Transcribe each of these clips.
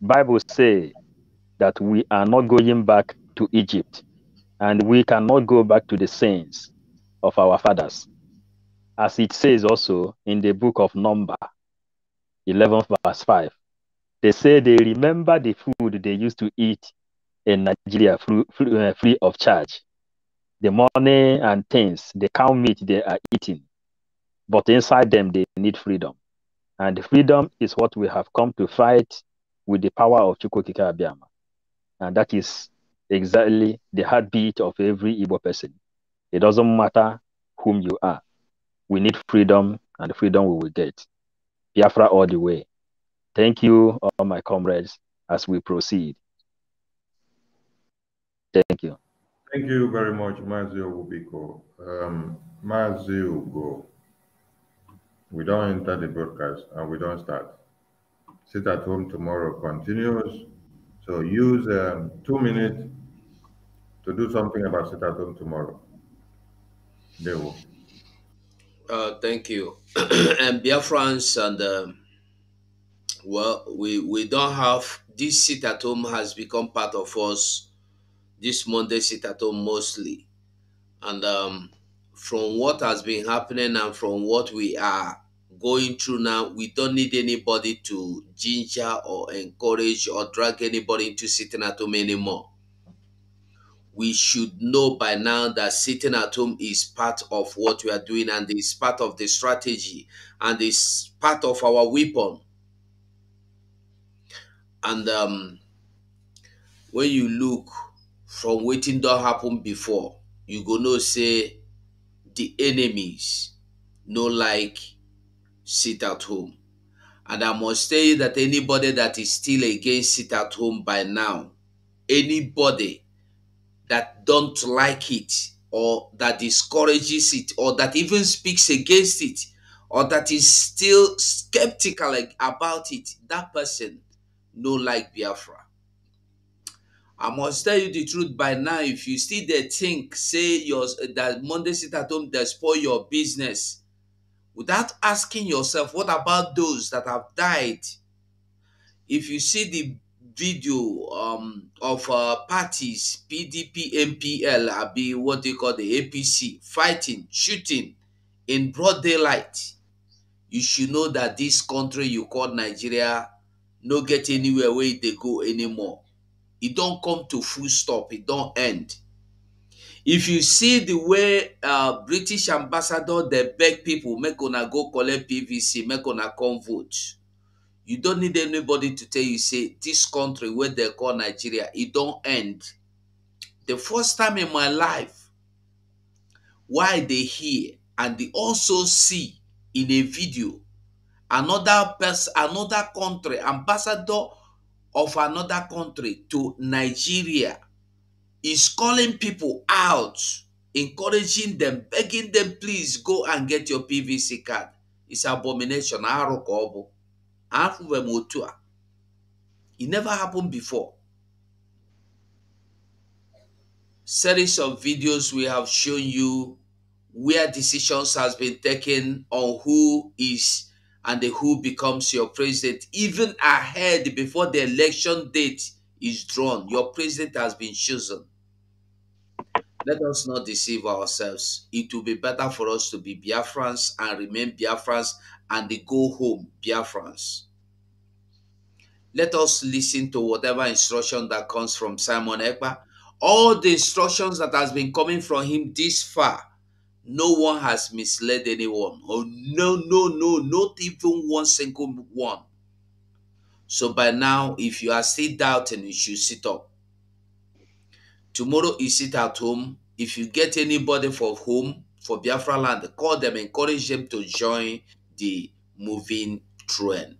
Bible say that we are not going back to Egypt and we cannot go back to the sins of our fathers. As it says also in the book of Number 11 verse 5. They say they remember the food they used to eat in Nigeria free, free uh, of charge. The money and things, the cow meat they are eating. But inside them, they need freedom. And freedom is what we have come to fight with the power of Chukwukika Abiyama. And that is exactly the heartbeat of every Igbo person. It doesn't matter whom you are. We need freedom, and freedom we will get. Biafra all the way. Thank you, all my comrades, as we proceed. Thank you. Thank you very much, Mazi Obubiko. Um, Mazi Ugo, we don't enter the broadcast and we don't start sit at home tomorrow continues. So use um, two minutes to do something about sit at home tomorrow. There will. Uh, thank you. and dear friends, and um, well, we, we don't have this sit at home has become part of us this Monday sit at home mostly. And um, from what has been happening and from what we are going through now, we don't need anybody to ginger or encourage or drag anybody into sitting at home anymore. We should know by now that sitting at home is part of what we are doing and is part of the strategy and is part of our weapon. And um, when you look from waiting don't happen before, you gonna say the enemies no like sit at home. And I must tell you that anybody that is still against sit at home by now, anybody that don't like it or that discourages it or that even speaks against it or that is still skeptical about it, that person no like Biafra. I must tell you the truth by now. If you still think, say your that Monday sit at home, that spoil your business without asking yourself, what about those that have died? If you see the video um, of uh, parties, PDP, MPL, be what they call the APC, fighting, shooting in broad daylight, you should know that this country you call Nigeria no get anywhere where they go anymore. It don't come to full stop. It don't end if you see the way uh, british ambassador dey beg people make una go collect pvc make una come vote you don't need anybody to tell you say this country wey dem call nigeria e don end the first time in my life why i dey hear and dey also see in a video another person another country ambassador of another country to nigeria is calling people out, encouraging them, begging them, please go and get your PVC card. It's abomination. It never happened before. Series of videos we have shown you where decisions has been taken on who is and who becomes your president, even ahead before the election date is drawn. Your president has been chosen. Let us not deceive ourselves. It will be better for us to be Biafrans and remain Biafrans and they go home Biafrans. Let us listen to whatever instruction that comes from Simon Ekpa. All the instructions that has been coming from him this far, no one has misled anyone. Oh, no, no, no, not even one single one. So by now, if you are still doubting, you should sit up. Tomorrow you sit at home. If you get anybody from home, for Biafra land, call them, encourage them to join the moving trend,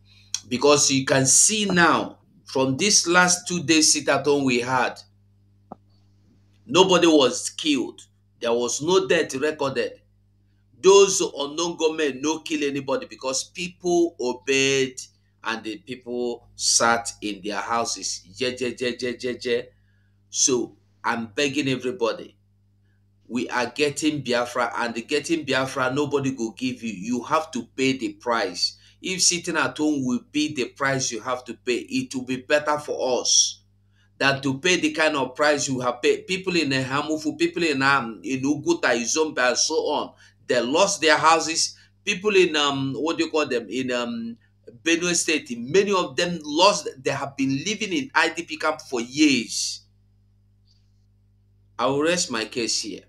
Because you can see now, from this last two days sit at home we had, nobody was killed. There was no death recorded. Those unknown government no kill anybody because people obeyed and the people sat in their houses. Yeah, yeah, yeah, yeah, yeah, So I'm begging everybody. We are getting Biafra, and getting Biafra, nobody will give you. You have to pay the price. If sitting at home will be the price you have to pay, it will be better for us than to pay the kind of price you have paid. People in Hamufu, people in um, in Uguta, Izombe, and so on, they lost their houses. People in um, what do you call them in um, Benue State, many of them lost, they have been living in IDP camp for years. I will rest my case here.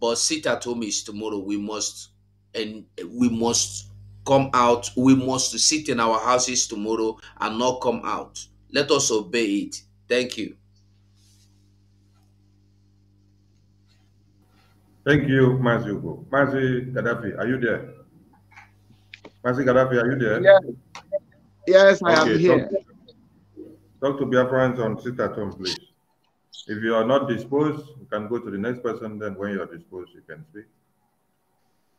But sit at home is tomorrow. We must and we must come out. We must sit in our houses tomorrow and not come out. Let us obey it. Thank you. Thank you, Mazi Ugo. Mazi Gaddafi, are you there? Mazi Gaddafi, are you there? Yes, yes I okay, am here. Talk, to Biafrans on sit at home, please. If you are not disposed, you can go to the next person. Then, when you are disposed, you can speak.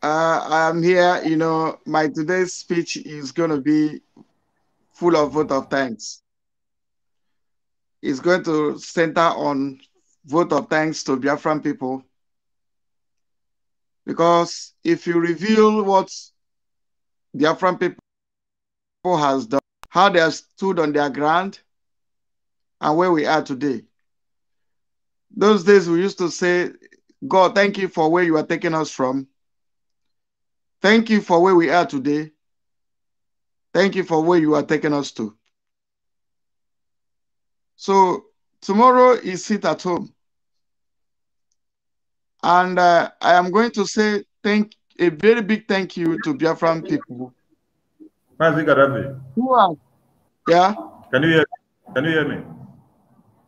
Uh, I'm here. You know, my today's speech is going to be full of vote of thanks. It's going to center on vote of thanks to Biafran people. Because if you reveal what Biafran people has done, how they have stood on their ground, and where we are today. Those days we used to say, God, thank you for where you are taking us from. Thank you for where we are today. Thank you for where you are taking us to. So tomorrow is sit at home. And uh, I am going to say thank a very big thank you to Biafran people. Who are? Yeah. Can you hear? Can you hear me?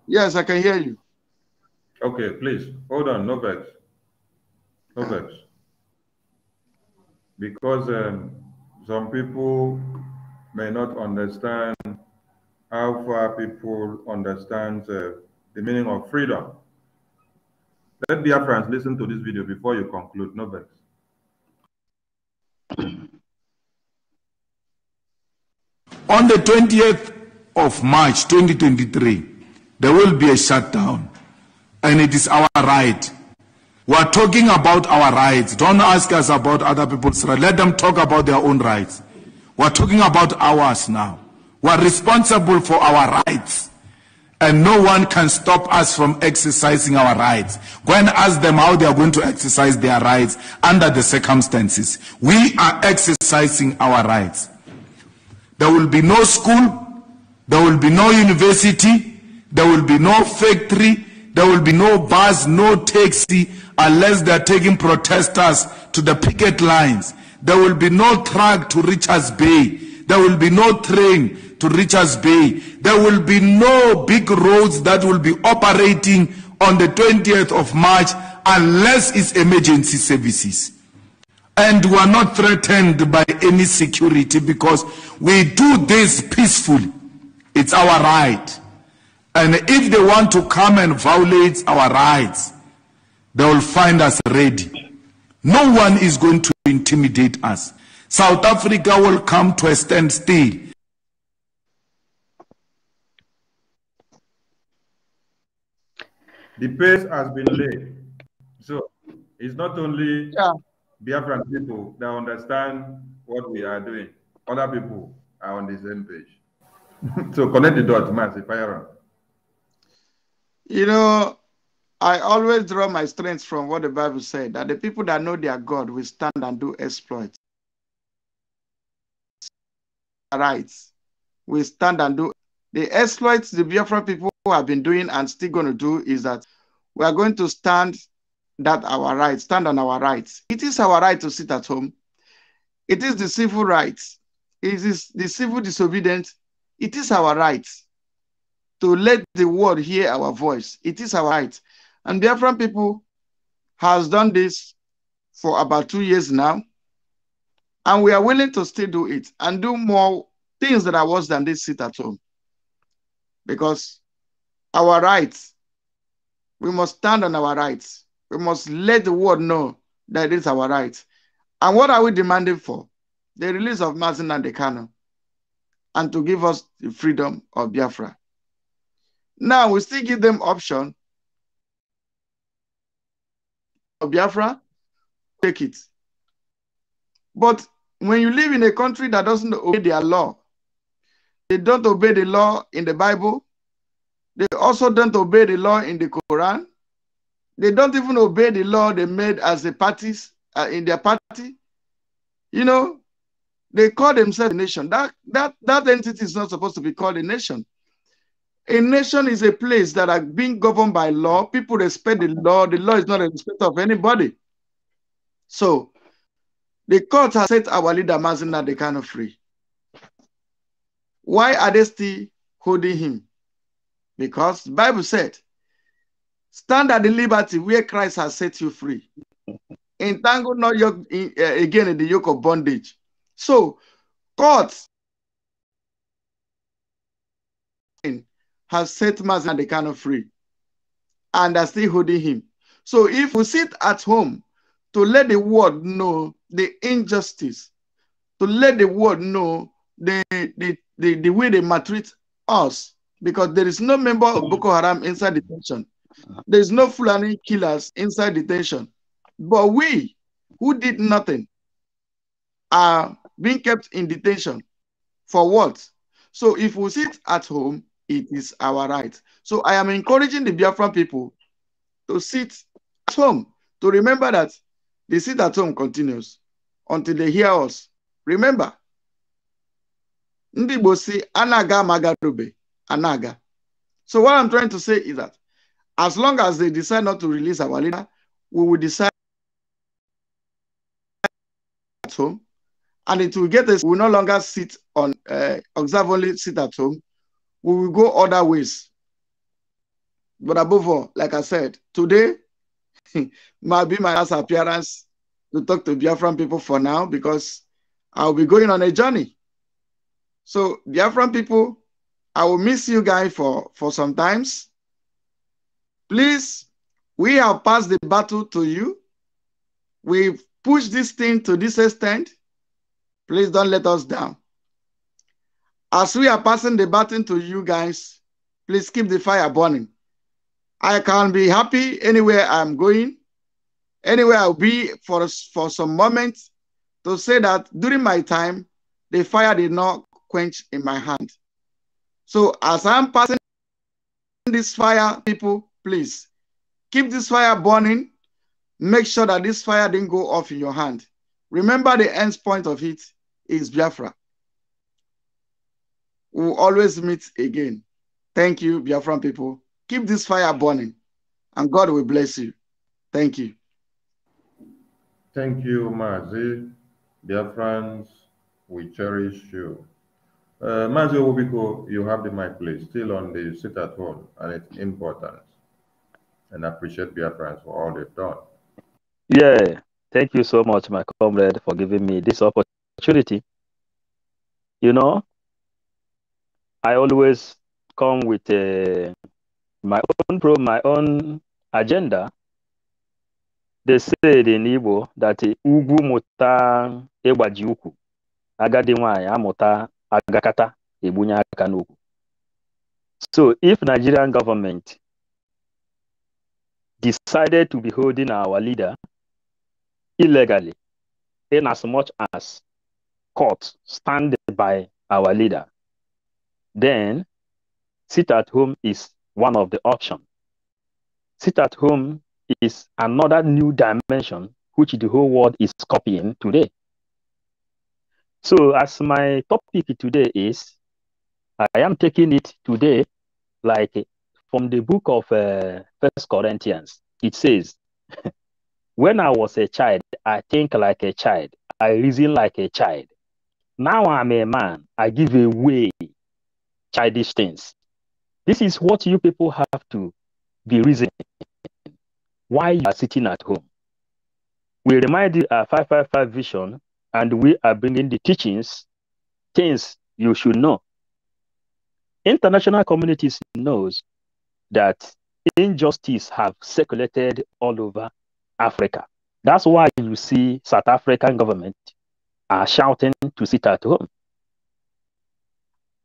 Yes, I can hear you. Okay, please hold on. No vex. No vex. Because um, some people may not understand how far people understand uh, the meaning of freedom. Let Biafrans listen to this video before you conclude. No vex. On the 20th of March 2023, there will be a shutdown, and it is our right. We are talking about our rights. Don't ask us about other people's rights. Let them talk about their own rights. We are talking about ours now. We are responsible for our rights and no one can stop us from exercising our rights. Go and ask them how they are going to exercise their rights under the circumstances. We are exercising our rights. There will be no school, there will be no university, there will be no factory, there will be no bus, no taxi, unless they are taking protesters to the picket lines. There will be no truck to Richards Bay. There will be no train to Richards Bay. There will be no big roads that will be operating on the 20th of March unless it's emergency services. And we are not threatened by any security because we do this peacefully. It's our right. And if they want to come and violate our rights, they will find us ready. No one is going to intimidate us. South Africa will come to a standstill the pace has been laid. So it's not only yeah. Biafran people that understand what we are doing, other people are on the same page. so connect the dots, Mass, if I You know, I always draw my strength from what the Bible said that the people that know their God will stand and do exploits. Rights We stand and do the exploits the Biafran people have been doing and still going to do is that we are going to stand that our rights, stand on our rights. It is our right to sit at home. It is the civil rights. It is the civil disobedience. It is our right to let the world hear our voice. It is our right. And Biafran people has done this for about two years now. And we are willing to still do it and do more things that are worse than this sit at home. Because our rights. We must stand on our rights. We must let the world know that it is our right. And what are we demanding for? The release of Mazin and the Kano and to give us the freedom of Biafra. Now we still give them option of Biafra, take it. But when you live in a country that doesn't obey their law, they don't obey the law in the Bible, they also don't obey the law in the Quran. They don't even obey the law they made as the parties uh, in their party. You know, they call themselves a nation. That, that, that entity is not supposed to be called a nation. A nation is a place that are being governed by law. People respect the law. The law is not a respect of anybody. So the court has set our leader kind of free. Why are they still holding him? Because the Bible said, stand at the liberty where Christ has set you free. Entangle not yoke in, uh, again in the yoke of bondage. So, God has set man and the kind of free and are still holding him. So, if we sit at home to let the world know the injustice, to let the world know the, the, the, the way they maltreat us, because there is no member of mm. Boko Haram inside detention. There is no Fulani killers inside detention. But we, who did nothing, are being kept in detention. For what? So if we sit at home, it is our right. So I am encouraging the Biafran people to sit at home, to remember that the sit at home continues until they hear us. Remember, Ndibosi anaga magarube. Anaga. So what I'm trying to say is that as long as they decide not to release our leader, we will decide at home, and it will get us. We will no longer sit on uh, observe only sit at home. We will go other ways. But above all, like I said, today might be my last appearance to talk to Biafran people for now because I'll be going on a journey. So Biafran people, I will miss you guys for, for some times. Please, we have passed the battle to you. We've pushed this thing to this extent. Please don't let us down. As we are passing the baton to you guys, please keep the fire burning. I can be happy anywhere I'm going, anywhere I'll be for, for some moments to say that during my time, the fire did not quench in my hand. So as I'm passing this fire, people, please keep this fire burning. Make sure that this fire didn't go off in your hand. Remember the end point of it is Biafra. We'll always meet again. Thank you, Biafran people. Keep this fire burning and God will bless you. Thank you. Thank you, Mazi. Dear friends, we cherish you. Uh, Mazi Obiko, you have the mic, please. Still on the sit at home and its important. And I appreciate Biafrans for all they've done. Yeah, thank you so much, my comrade, for giving me this opportunity. You know, I always come with uh, my own pro, my own agenda. They said in Igbo that uh, Ugu eba Ewajiuku, Agadi Nwanyị Amuta agakata aka so if nigerian government decided to be holding our leader illegally in as much as court stand by our leader then sit at home is one of the options sit at home is another new dimension which the whole world is copying today so as my topic today is, I am taking it today, like from the book of uh, First uh, Corinthians. It says, "When I was a child, I think like a child, I reason like a child. Now I'm a man, I give away childish things." This is what you people have to be reasoning. Why you are sitting at home? We remind you our 555 vision and we are bringing the teachings, things you should know. International communities knows that injustice have circulated all over Africa. That's why you see South African government are shouting to sit at home.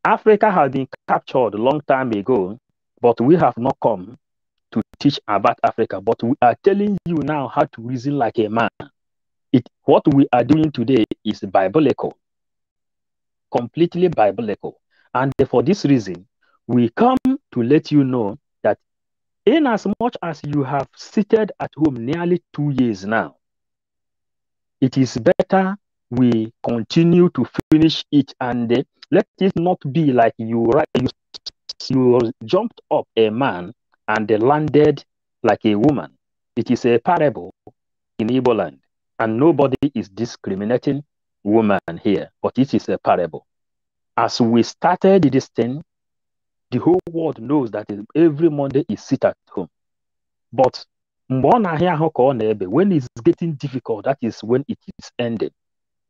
Africa has been captured a long time ago, but we have not come to teach about Africa. But we are telling you now how to reason like a man it what we are doing today is biblical, completely biblical. And for this reason, we come to let you know that in as much as you have seated at home nearly two years now, it is better we continue to finish it and uh, let it not be like you, you you jumped up a man and landed like a woman. It is a parable in Igbo land. And nobody is discriminating woman here, but it is a parable. As we started this thing, the whole world knows that every Monday is sit at home. But when it's getting difficult, that is when it is ending.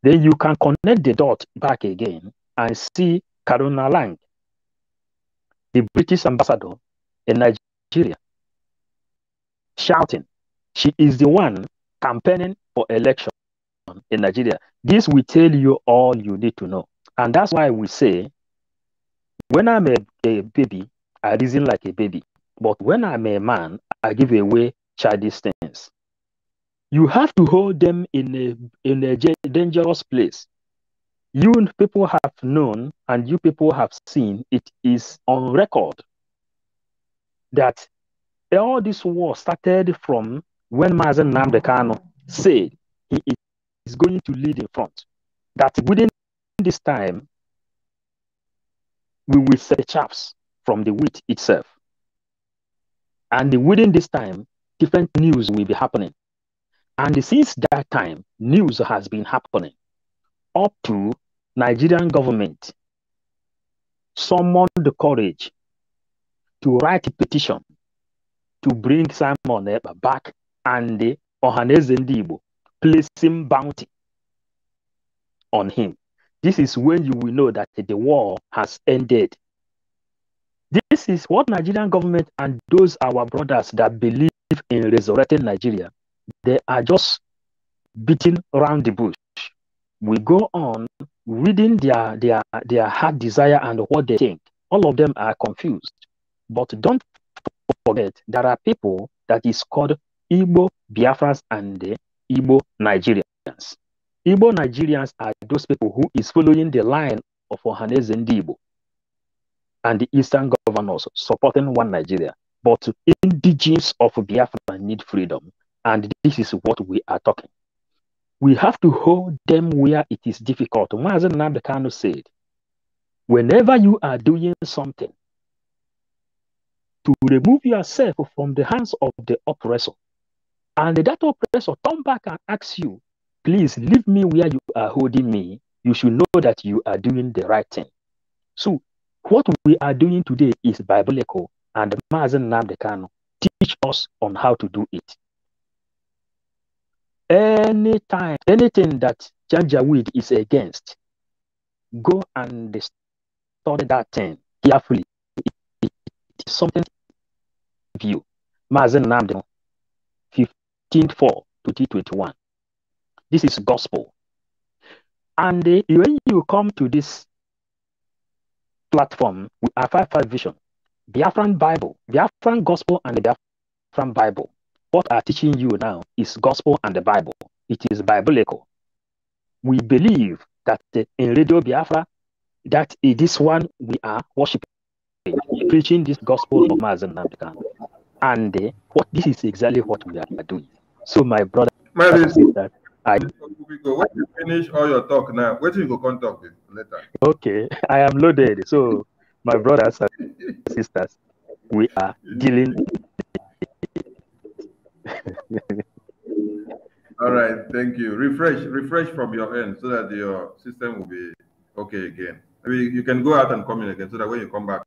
Then you can connect the dot back again and see Karuna Lang, the British ambassador in Nigeria, shouting, She is the one campaigning for election in Nigeria. This will tell you all you need to know. And that's why we say, when I'm a, a baby, I reason like a baby. But when I'm a man, I give away childish things. You have to hold them in a, in a dangerous place. You people have known and you people have seen, it is on record that all this war started from when Mazen Namdekano said he is going to lead in front, that within this time, we will set the chaps from the wheat itself. And within this time, different news will be happening. And since that time, news has been happening up to Nigerian government summoned the courage to write a petition to bring Simon Eber back and the Ohaneze placing bounty on him. This is when you will know that the war has ended. This is what Nigerian government and those our brothers that believe in resurrecting Nigeria, they are just beating around the bush. We go on reading their, their, their heart desire and what they think. All of them are confused. But don't forget, there are people that is called Igbo Biafrans and the Igbo Nigerians. Igbo Nigerians are those people who is following the line of Ohaneze Zendebo and the Eastern governors supporting one Nigeria. But indigenous of Biafra need freedom, and this is what we are talking. We have to hold them where it is difficult. Mazen Nabekano said, whenever you are doing something, to remove yourself from the hands of the oppressor and that oppressor come back and ask you, please leave me where you are holding me. You should know that you are doing the right thing. So what we are doing today is biblical and Mazen Namdekano teach us on how to do it. Anytime, anything that Janjaweed is against, go and study that thing carefully. It is something you, Mazen Namdekano 2004 to This is gospel. And uh, when you come to this platform with 5 5 vision, the Biafran Bible, the Biafran Gospel, and the Biafran Bible, what are teaching you now is gospel and the Bible. It is biblical. We believe that uh, in Radio Biafra, that in this one we are worshiping, preaching this gospel of Mazan Namdekan. And uh, what this is exactly what we are doing. So my brother my that I when you finish all your talk now, where do you go Contact talk later? Okay, I am loaded. So my brothers and sisters, we are dealing All right, thank you. Refresh, refresh from your end so that your system will be okay again. I mean, you can go out and come in again so that when you come back,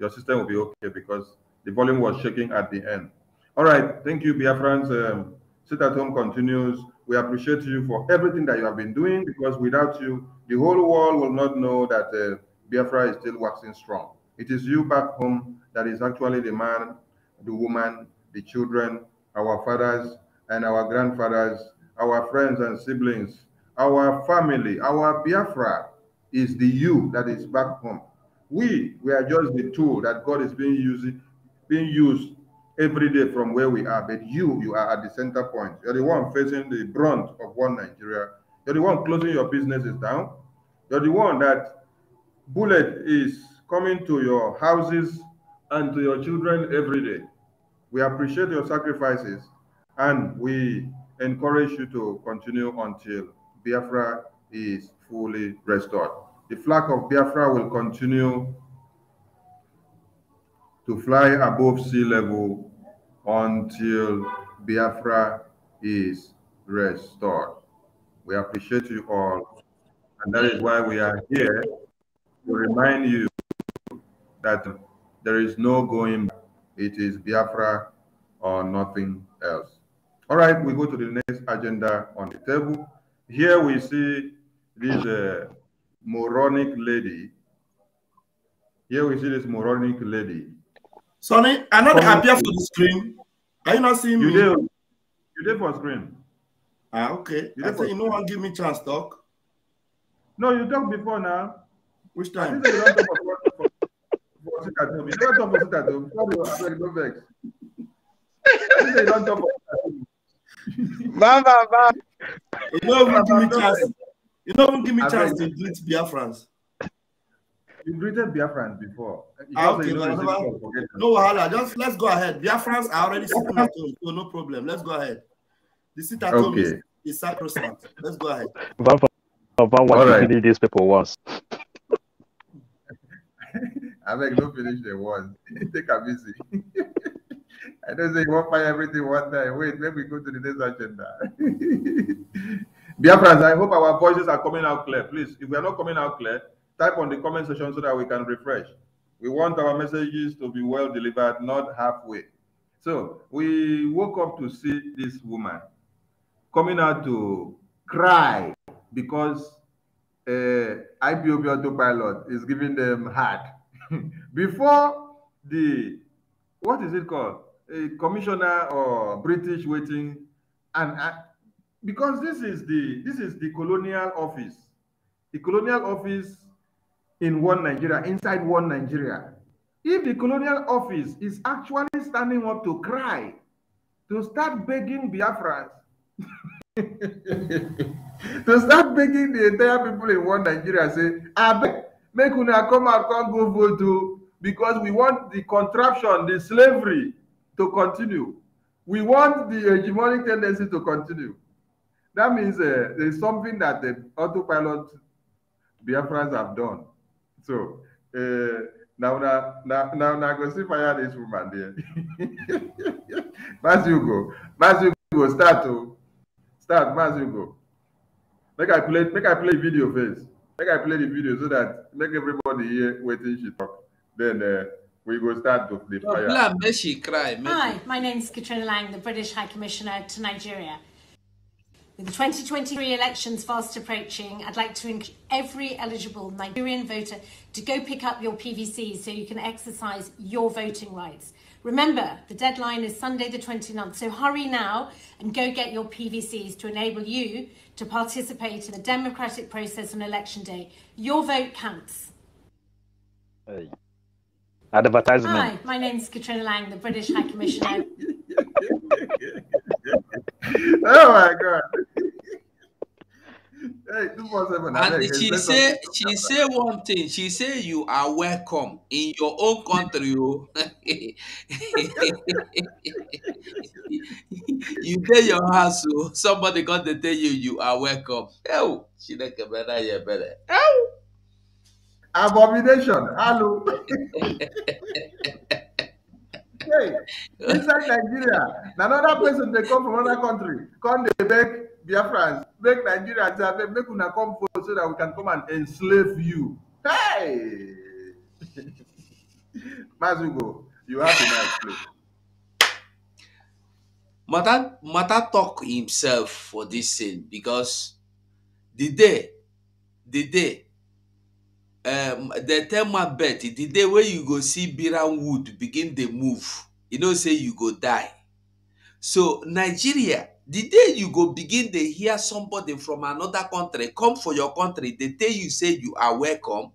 your system will be okay because the volume was shaking at the end. All right, thank you, Biafrans. Um, Sit at Home continues. We appreciate you for everything that you have been doing because without you, the whole world will not know that uh, Biafra is still waxing strong. It is you back home that is actually the man, the woman, the children, our fathers and our grandfathers, our friends and siblings, our family, our Biafra is the you that is back home. We, we are just the tool that God is being using, being used every day from where we are, but you, you are at the center point. You're the one facing the brunt of one Nigeria. You're the one closing your businesses down. You're the one that bullet is coming to your houses and to your children every day. We appreciate your sacrifices and we encourage you to continue until Biafra is fully restored. The flag of Biafra will continue to fly above sea level until Biafra is restored. We appreciate you all. And that is why we are here to remind you that there is no going back. It is Biafra or nothing else. All right, we go to the next agenda on the table. Here we see this uh, moronic lady. Here we see this moronic lady Sonny, I am not happy for the screen. Are you not seeing you me? Did. You did for screen. Ah, okay. You I say you no one give me chance talk. No, you talk before now. Which time? You don't talk for You talk for sit You you don't talk for sit at home. Bam, You don't even give me chance. You don't even give me chance to greet Biafrans. You greeted Biafrans before. Ah, okay, no, no, no wahala. Just let's go ahead. Biafrans are already sitting at home, so no problem. Let's go ahead. The at okay. is, is sacrosanct. Let's go ahead. But, what right. these people was. I beg, don't finish the one. Take a busy. I don't say you won't find everything one time. Wait, let me go to the next agenda. Dear friends, I hope our voices are coming out clear. Please, if we are not coming out clear, type on the comment section so that we can refresh. We want our messages to be well delivered, not halfway. So we woke up to see this woman coming out to cry because uh, eh, IPOB autopilot is giving them hard. Before the, what is it called? A commissioner or British waiting and uh, because this is the this is the colonial office the colonial office in one Nigeria, inside one Nigeria. If the colonial office is actually standing up to cry, to start begging Biafras, to start begging the entire people in one Nigeria, say, I beg, make una come out, come go vote because we want the contraption, the slavery to continue. We want the hegemonic tendency to continue. That means uh, there's something that the autopilot Biafrans have done so uh, now, now, now, now, now, go see fire this woman there. Mas you go, Mas you go, start to oh. start, Mas you go. Make I play, make I play video first. Make I play the video so that make everybody here waiting she talk. Then uh, we go start to the fire. Hi, my name is Katrina Lang, the British High Commissioner to Nigeria. With the 2023 elections fast approaching, I'd like to encourage every eligible Nigerian voter to go pick up your PVC so you can exercise your voting rights. Remember, the deadline is Sunday the 29th, so hurry now and go get your PVCs to enable you to participate in the democratic process on election day. Your vote counts. Hey. Advertisement. Hi, my name's Katrina Lang, the British High Commissioner. oh my God. Hey, and she say she say one thing. She say you are welcome in your own country. you get your house, so somebody got to tell you you are welcome. Oh, she like a better, yeah, better. Oh, abomination. Hello. hey, inside Nigeria, another person they come from another country, come they beg Biafrans make Nigeria Nigerians make una come forward so that we can come and enslave you. Hey! Mazugo, you have a nice play. Mata, Mata talk himself for this thing because the day, the day, um, the tell my bet, the day where you go see Biran Wood begin the move, you know, say you go die. So Nigeria the day you go begin dey hear somebody from another country come for your country dey tell you say you are welcome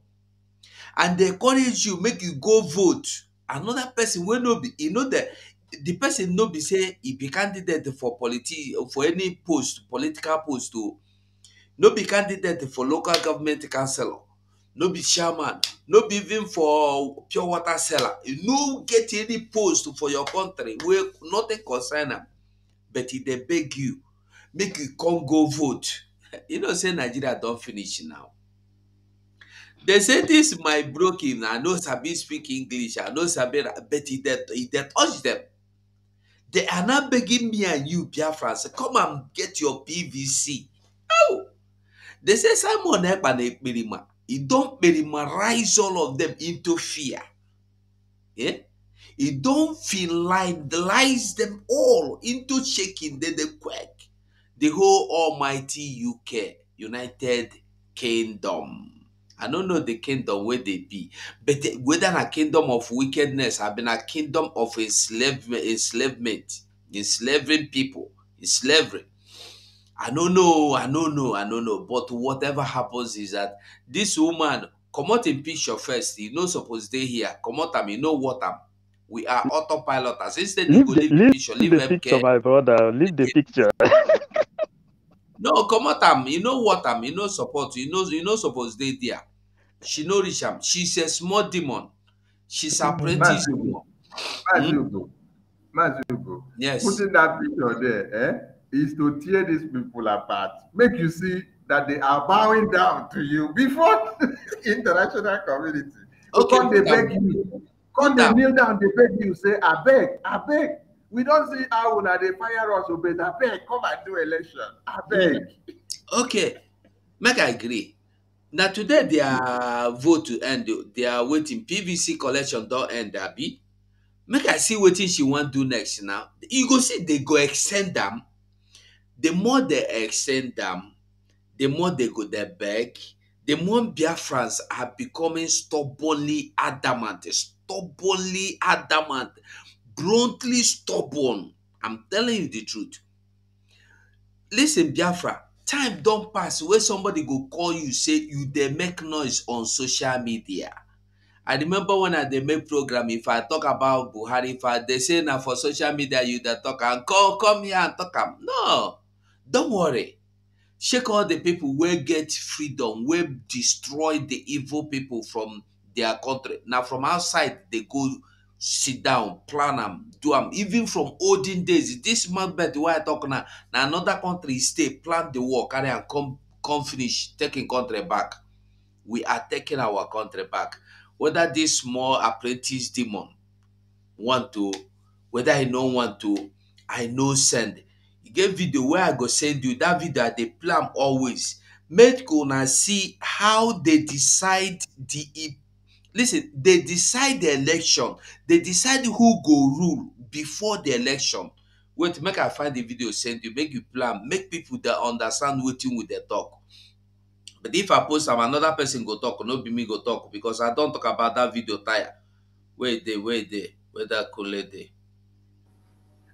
and dey encourage you make you go vote another person wey no be e no dey the person no be say e be candidate for politi for any post political post o oh. no be candidate for local government councillor no be chairman no be even for pure water seller you no get any post for your country wey nothing concern am but e dey beg you make you come go vote you know say nigeria don finish now dem say dis my broken i no sabi speak english i no sabi but e dey touch dem they are now begging me and you biafrans come and get your pvc oh they say simon ekpa na ekperima e don kperima rise all of dem into fear yeah? He don't finalize them all into shaking, then they quake. The whole almighty UK, United Kingdom. I don't know the kingdom where they be, but whether a kingdom of wickedness have been a kingdom of enslavement, enslavement, enslaving people, enslaving. I don't know, I don't know, I don't know. But whatever happens is that this woman, come out in picture first. You know, suppose they here. Come out, I mean, know what I'm. We are autopilot. Instead, leave the, leave, leave, picture, leave, the picture, my brother. Leave the picture. no, come on, Tam. Um, you know what am. Um, you know support. You know you know suppose they there. She no richam. Um, she's a small demon. She's mm-hmm. apprentice demon. Majugo. Majugo. Yes. Putting that picture there eh, is to tear these people apart. Make you see that they are bowing down to you before international community. Okay, because they beg you Come down. kneel down, they beg you, say, I beg, I beg. We don't see how now they fire us, oh, but I beg, come and do election. I beg. Okay, make I agree. Now today their vote to end, they are waiting. PVC collection don't end, Abby. Make I see what she want to do next now. You go see they go extend them. The more they extend them, the more they go their beg. The more Biafrans are becoming stubbornly adamant, stubbornly adamant, bluntly stubborn. I'm telling you the truth. Listen, Biafra, time don't pass wey somebody go call you say you they make noise on social media. I remember when I they make program, if I talk about Buhari, if I say na for social media you that talk and come come here and talk am. No, don't worry. Shake all the people we get freedom, wey destroy the evil people from their country now. from outside they go sit down plan am do am even from olden days this macbeth wey i talk now Now another country stay plan the war carry and come come finish taking country back we are taking our country back whether this small apprentice demon want to whether he no want to i no send e get video where i go send you that video they plan play am always make una see how they decide di listen they decide the election they decide who go rule before the election wait make i find the video send you make you plan make people dey understand wetin we dey talk but if i post am another person go talk no be me go talk because i don talk about that video tire wey dey wey dey wey that kule dey.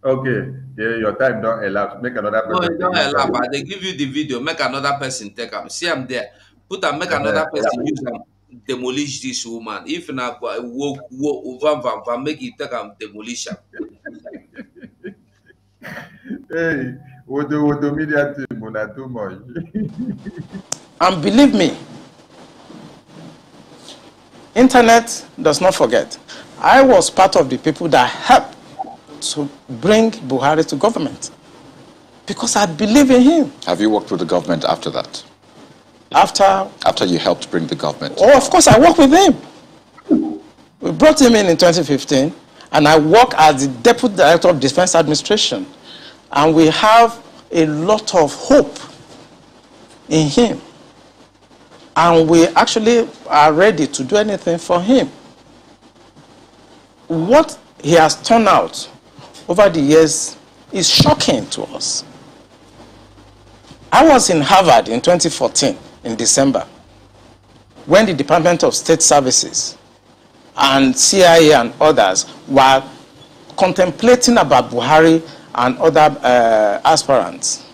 okay yeah, your time don't elapse make another person. no e don elapse i dey give you the video make another person take am see am there put am make another person use am demolish this woman if na work work van van van make it take am demolish am. hey wodo do media team una too much. and believe me internet does not forget i was part of the people that helped to bring buhari to government because i believe in him. have you worked with the government after that. After after you helped bring the government. Oh, of course, I worked with him. We brought him in in 2015, and I work as the deputy director of defense administration, and we have a lot of hope in him, and we actually are ready to do anything for him. What he has turned out over the years is shocking to us. I was in Harvard in 2014 in December when the Department of State Services and CIA and others were contemplating about Buhari and other uh, aspirants.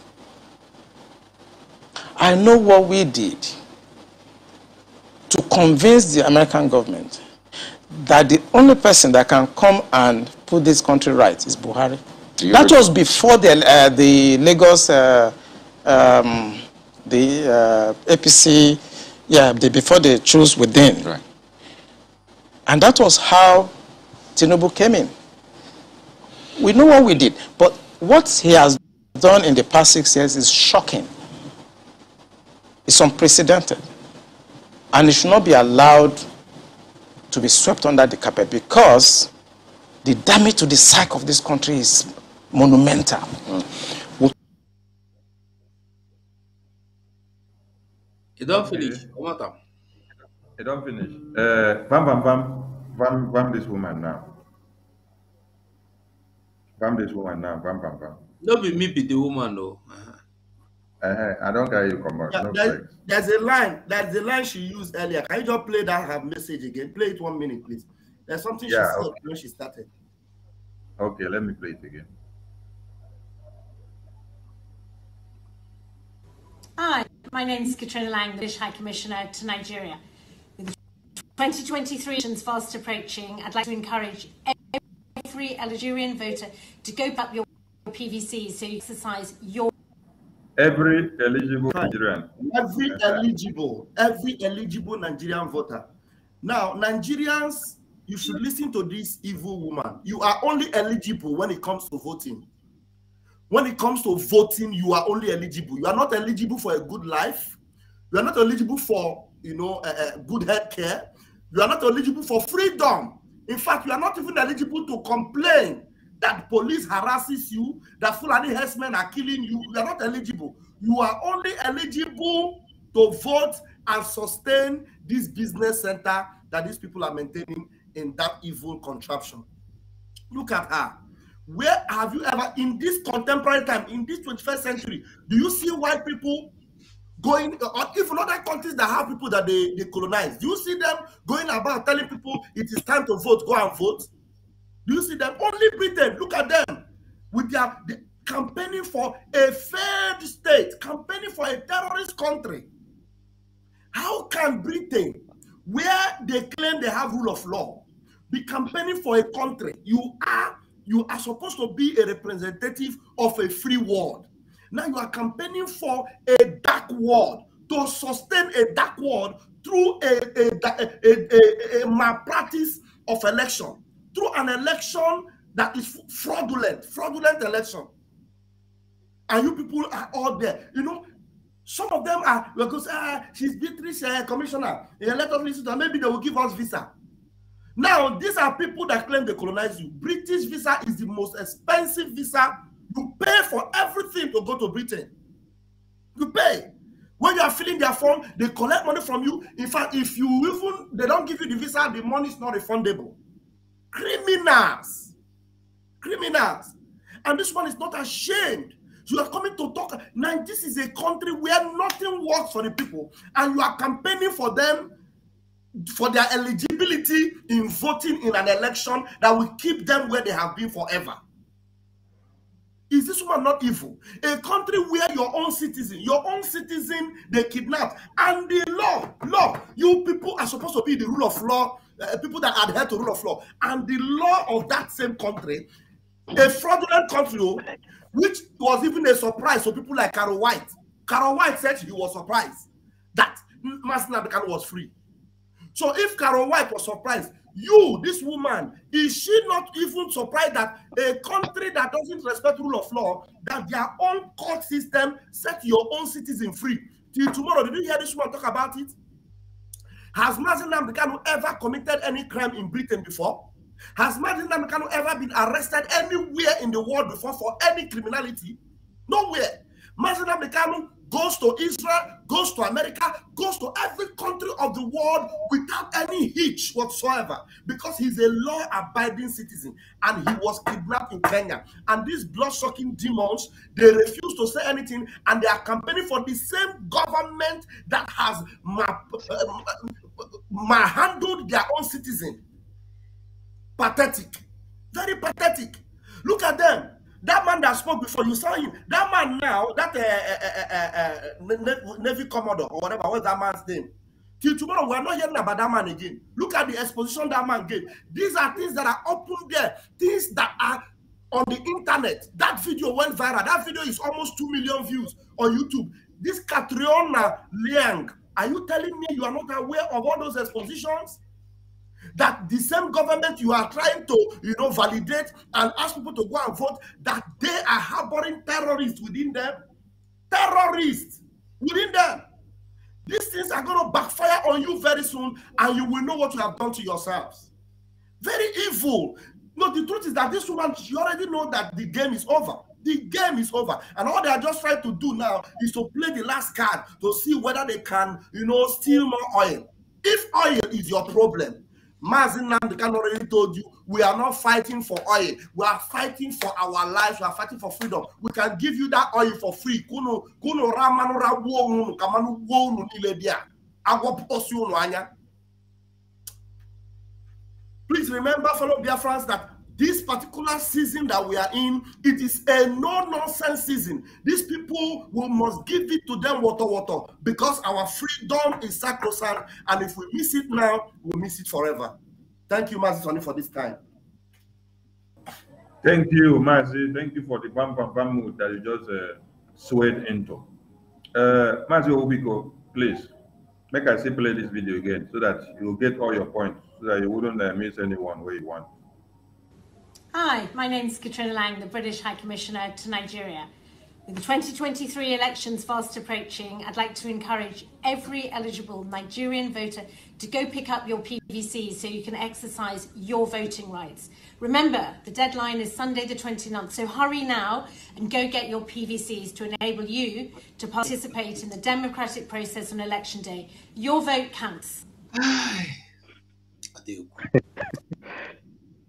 I know what we did to convince the American government that the only person that can come and put this country right is Buhari. That was before the, uh, the Lagos uh, um, the uh, APC, yeah, the, before they choose within. Right. And that was how Tinubu came in. We know what we did, but what he has done in the past six years is shocking. It's unprecedented. And it should not be allowed to be swept under the carpet because the damage to the psyche of this country is monumental. Mm. don't finish. One You don't finish. Bam, eh, bam, bam. Bam, bam this woman now. Bam this woman now. Bam, bam, do Not be me be the woman though. No. Uh-huh. Eh, eh, I don't care you come back. Yeah, no there's, there's a line. There's a line she used earlier. Can you just play that her message again? Play it one minute, please. There's something yeah, she said okay. when she started. Okay, let me play it again. Hi. My name is Katrina Lang, the British High Commissioner to Nigeria. With 2023 fast approaching, I'd like to encourage every Algerian voter to go up your PVC so you exercise your every eligible Nigerian. Every eligible, every eligible Nigerian voter. Now, Nigerians, you should listen to this evil woman. You are only eligible when it comes to voting when it comes to voting, you are only eligible. You are not eligible for a good life. You are not eligible for, you know, a, a good health care. You are not eligible for freedom. In fact, you are not even eligible to complain that police harasses you, that Fulani herdsmen are killing you. You are not eligible. You are only eligible to vote and sustain this business center that these people are maintaining in that evil contraption. Look at her. Where have you ever, in this contemporary time, in this 21st century, do you see white people going, or even other countries that have people that they, they colonize, do you see them going about telling people it is time to vote, go and vote? Do you see them? Only Britain, look at them with their the, campaigning for a failed state, campaigning for a terrorist country. How can Britain, where they claim they have rule of law, be campaigning for a country? You are you are supposed to be a representative of a free world. Now you are campaigning for a dark world to sustain a dark world through a, a, a, a, a malpractice of election, through an election that is fraudulent, fraudulent election. And you people are all there. You know, some of them are because uh, ah, she's Beatrice uh, commissioner. Yeah, let us listen to her. Maybe they will give us visa. Now, these are people that claim they colonize you. British visa is the most expensive visa. You pay for everything to go to Britain. You pay. When you are filling their form, they collect money from you. In fact, if you even they don't give you the visa, the money is not refundable. Criminals. Criminals. And this one is not ashamed. You are coming to talk. Now, this is a country where nothing works for the people, and you are campaigning for them for their eligibility in voting in an election that will keep them where they have been forever. Is this woman not evil? A country where your own citizen, your own citizen, they kidnap, and the law, law, you people are supposed to be the rule of law, uh, people that adhere to rule of law, and the law of that same country, a fraudulent country, oh, which was even a surprise to people like Carol White. Carol White said he was surprised that Martin Abikan was free. So if Carol White was surprised, you, this woman, is she not even surprised that a country that doesn't respect rule of law, that their own court system set your own citizen free? Till tomorrow, did you hear this woman talk about it? Has Mazin Namdekanu ever committed any crime in Britain before? Has Mazin Namdekanu ever been arrested anywhere in the world before for any criminality? Nowhere. Mazin Namdekanu goes to Israel, goes to America, goes to every country of the world without any hitch whatsoever because he's a law abiding citizen and he was kidnapped in Kenya. And these blood sucking demons, they refuse to say anything and they are campaigning for the same government that has manhandled um, their own citizen. Pathetic. Very pathetic. Look at them. That man that spoke before, you saw him. That man now, that uh, uh, uh, Navy Commodore or whatever, what's that man's name? Till tomorrow, we are not hearing about that man again. Look at the exposition that man gave. These are things that are open there, things that are on the internet. That video went viral. That video is almost 2 million views on YouTube. This Catriona Liang, are you telling me you are not aware of all those expositions? that the same government you are trying to you know validate and ask people to go and vote that they are harboring terrorists within them terrorists within them these things are going to backfire on you very soon and you will know what you have done to yourselves very evil no the truth is that this woman she already know that the game is over the game is over and all they are just trying to do now is to play the last card to see whether they can you know steal more oil if oil is your problem Mazin Namdekan already told you we are not fighting for oil. We are fighting for our lives. We are fighting for freedom. We can give you that oil for free. Kuno kuno ramanu rabu kamanu wonu nile dia. Please remember, fellow dear friends, that this particular season that we are in, it is a no-nonsense season. These people, we must give it to them water, water, because our freedom is sacrosanct, and if we miss it now, we'll miss it forever. Thank you, Mazi for this time. Thank you, Mazi. Thank you for the bam bam bam mood that you just uh, swayed into. Uh, Mazi Obiko, please, make us say play this video again so that you get all your points, so that you wouldn't uh, miss anyone where you want. Hi, my name is Katrina Lang, the British High Commissioner to Nigeria. With the 2023 elections fast approaching, I'd like to encourage every eligible Nigerian voter to go pick up your PVC so you can exercise your voting rights. Remember, the deadline is Sunday the 29th, so hurry now and go get your PVCs to enable you to participate in the democratic process on election day. Your vote counts. I do.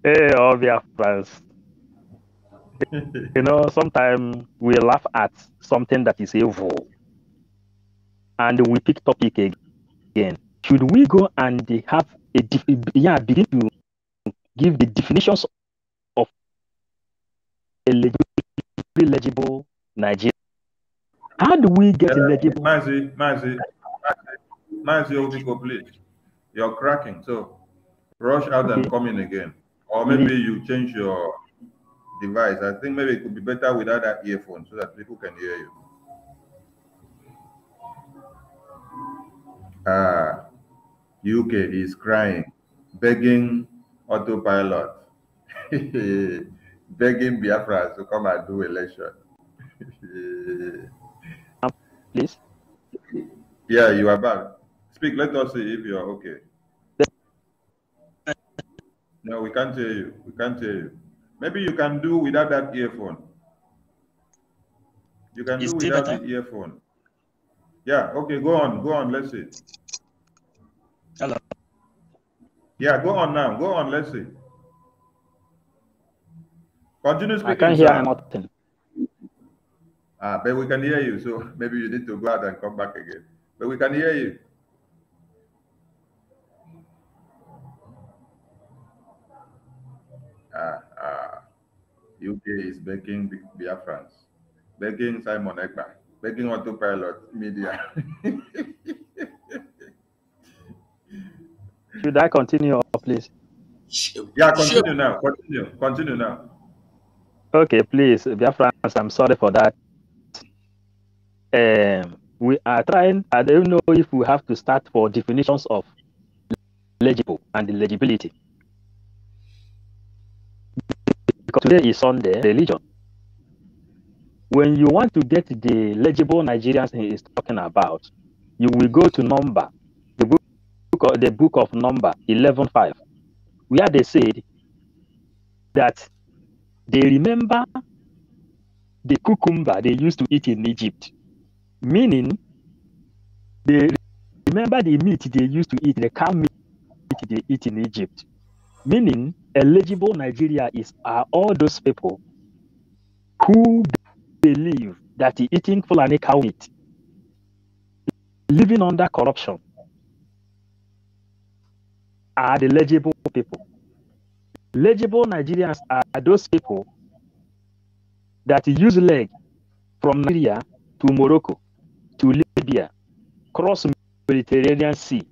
Hey, all friends. you know, sometimes we laugh at something that is evil and we pick topic again. Should we go and have a, yeah, begin to give the definitions of eligible Nigeria? How do we get uh, eligible? Mazi, Mazi, Mazi, Mazi, please. You're cracking, so rush out okay. and come in again. Or maybe you change your device. I think maybe it could be better without that earphone so that people can hear you. Ah, UK is crying, begging autopilot, begging Biafra to come and do election. Please. Yeah, you are back. Speak. Let us see if you are okay. No, we can't hear uh, you. We can't hear uh, you. Maybe you can do without that earphone. You can it's do without better. the earphone. Yeah, okay, go on, go on, let's see. Hello. Yeah, go on now, go on, let's see. Continue speaking. I can't hear nothing. Ah, but we can hear you, so maybe you need to go out and come back again. But we can hear you. Uh, ah, ah. uh, UK is begging Biafrans, begging Simon Ekman, begging autopilot media. Should I continue, please? Yeah, continue now. Continue. Continue now. Okay, please, Biafrans, I'm sorry for that. Um, we are trying, I don't know if we have to start for definitions of legible and legibility because today is Sunday religion. When you want to get the legible Nigerians he is talking about, you will go to number, the book, the book of number 11.5, where they said that they remember the cucumber they used to eat in Egypt, meaning they remember the meat they used to eat, the cow meat they eat in Egypt. Meaning, eligible Nigeria is are all those people who believe that eating Fulani cow meat, living under corruption, are the legible people. Legible Nigerians are those people that use leg from Nigeria to Morocco to Libya, cross Mediterranean Sea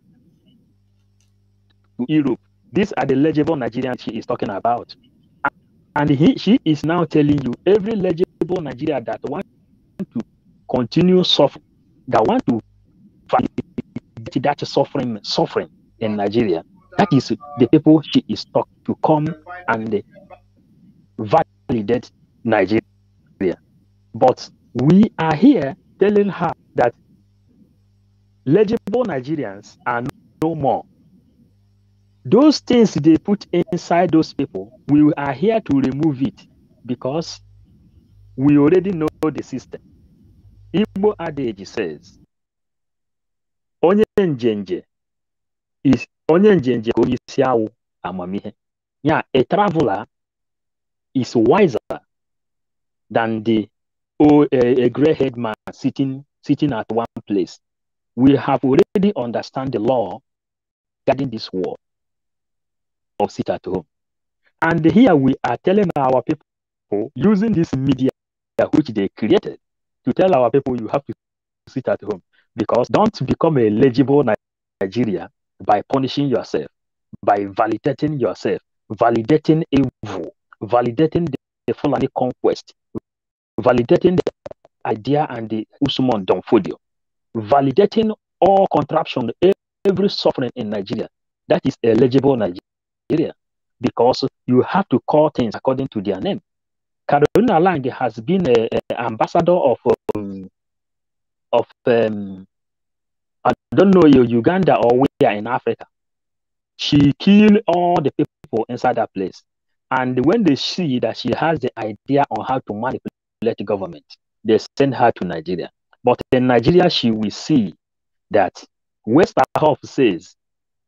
to Europe these are the legible Nigerians she is talking about. And he, she is now telling you every legible Nigeria that want to continue suffering, that want to fight that suffering, suffering in Nigeria. That is the people she is talking to come and validate Nigeria. But we are here telling her that legible Nigerians are no more. Those things they put inside those people, we are here to remove it because we already know the system. Igbo adage says, Onye njenje is onye njenje ka onye isi amamihe. Yeah, a traveler is wiser than the oh, a, a gray-haired man sitting sitting at one place. We have already understand the law guiding this world or sit at home. And here we are telling our people using this media which they created to tell our people you have to sit at home because don't become a legible Nigeria by punishing yourself, by validating yourself, validating evil, validating the, the Fulani conquest, validating the idea and the Usman Donfodio, validating all contraption, every suffering in Nigeria. That is a legible Nigeria. Nigeria because you have to call things according to their name. Carolina Lang has been an ambassador of um, of um, I don't know Uganda or where in Africa. She killed all the people inside that place, and when they see that she has the idea on how to manipulate the government, they send her to Nigeria. But in Nigeria, she will see that West says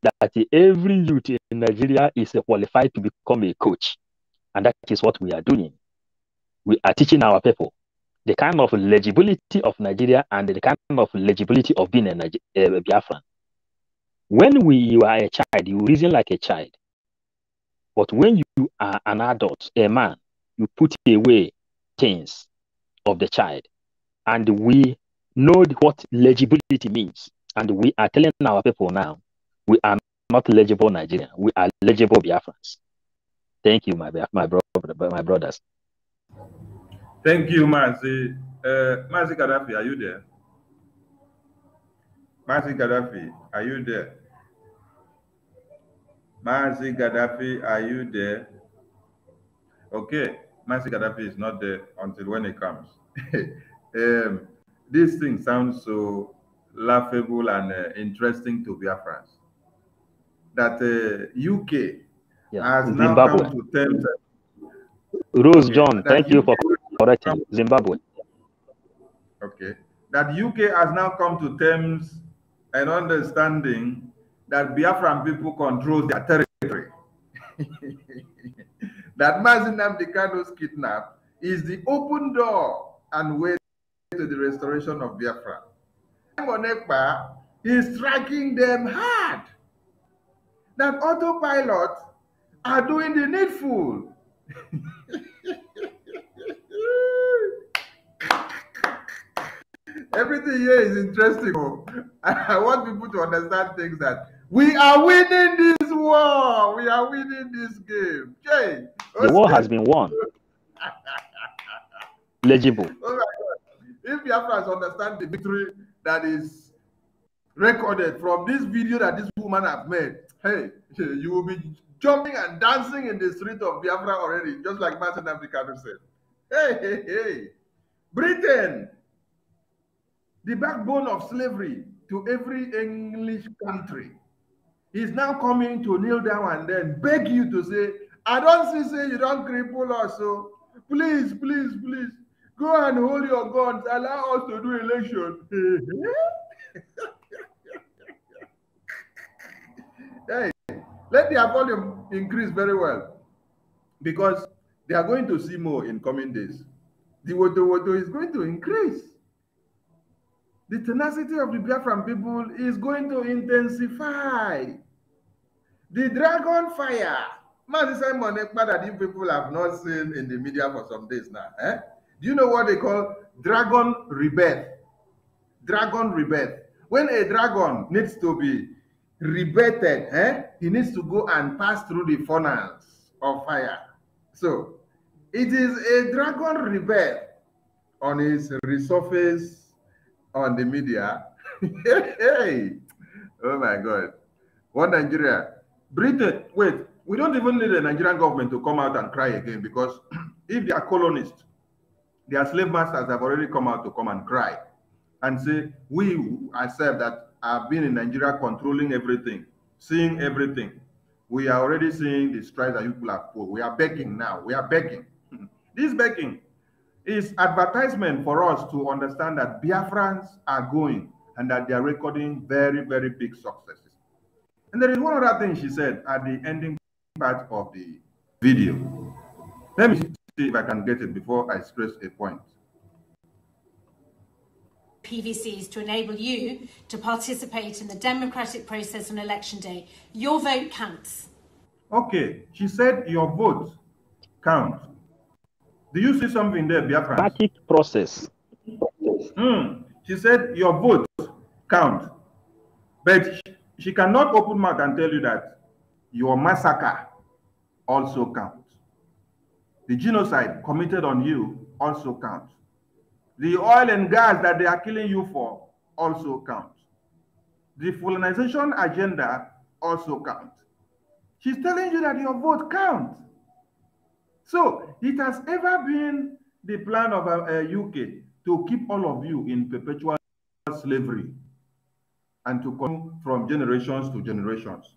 that every youth in Nigeria is qualified to become a coach. And that is what we are doing. We are teaching our people the kind of legibility of Nigeria and the kind of legibility of being a, Niger- a Biafran. When we, you are a child, you reason like a child. But when you are an adult, a man, you put away things of the child. And we know what legibility means. And we are telling our people now we are not legible Nigerian. We are legible Biafrans. Thank you, my my brother, my brothers. Thank you, Mazi. Uh, Mazi Gaddafi, are you there? Mazi Gaddafi, are you there? Mazi Gaddafi, are you there? Okay, Mazi Gaddafi is not there until when he comes. um, this thing sounds so laughable and uh, interesting to France that uh, UK yeah. has Zimbabwe. now come to terms. Rose John, thank UK you for correcting Zimbabwe. Okay, that UK has now come to terms and understanding that Biafran people control their territory. that Mazinam Dekano's kidnap is the open door and way to the restoration of Biafra. Monekpa is striking them hard that autopilot are doing the needful. Everything here is interesting. Oh. I want people to understand things that we are winning this war. We are winning this game. Jay, the war has been won. Legible. Oh my God. If to understand the victory that is recorded from this video that this woman have made, hey, you will be jumping and dancing in the street of Biafra already, just like Martin Africa said. Hey, hey, hey. Britain, the backbone of slavery to every English country, is now coming to kneel down and then beg you to say, I don't see, say you don't cripple us, so please, please, please, go and hold your guns, allow us to do election. Let their volume increase very well because they are going to see more in coming days. The Wodo Wodo is going to increase. The tenacity of the Biafran people is going to intensify. The dragon fire. Man, Simon Ekpa that you people have not seen in the media for some days now. Eh? Do you know what they call dragon rebirth? Dragon rebirth. When a dragon needs to be Rebated, eh? he needs to go and pass through the furnace of fire. So it is a dragon rebel on his resurface on the media. hey, oh my God. What Nigeria? Britain, wait, we don't even need the Nigerian government to come out and cry again because if they are colonists, their slave masters have already come out to come and cry and say, we ourselves that have been in Nigeria controlling everything, seeing everything. We are already seeing the strikes that people have put. We are begging now. We are begging. this begging is advertisement for us to understand that Biafrans are going and that they are recording very, very big successes. And there is one other thing she said at the ending part of the video. Let me see if I can get it before I stress a point. PVCs to enable you to participate in the democratic process on election day. Your vote counts. Okay, she said your vote counts. Do you see something there, Biafra? Democratic process. Mm. She said your vote counts. But she cannot open mouth and tell you that your massacre also counts. The genocide committed on you also counts. The oil and gas that they are killing you for also count. The colonization agenda also counts. She's telling you that your vote counts. So it has ever been the plan of uh, UK uh, to keep all of you in perpetual slavery and to come from generations to generations.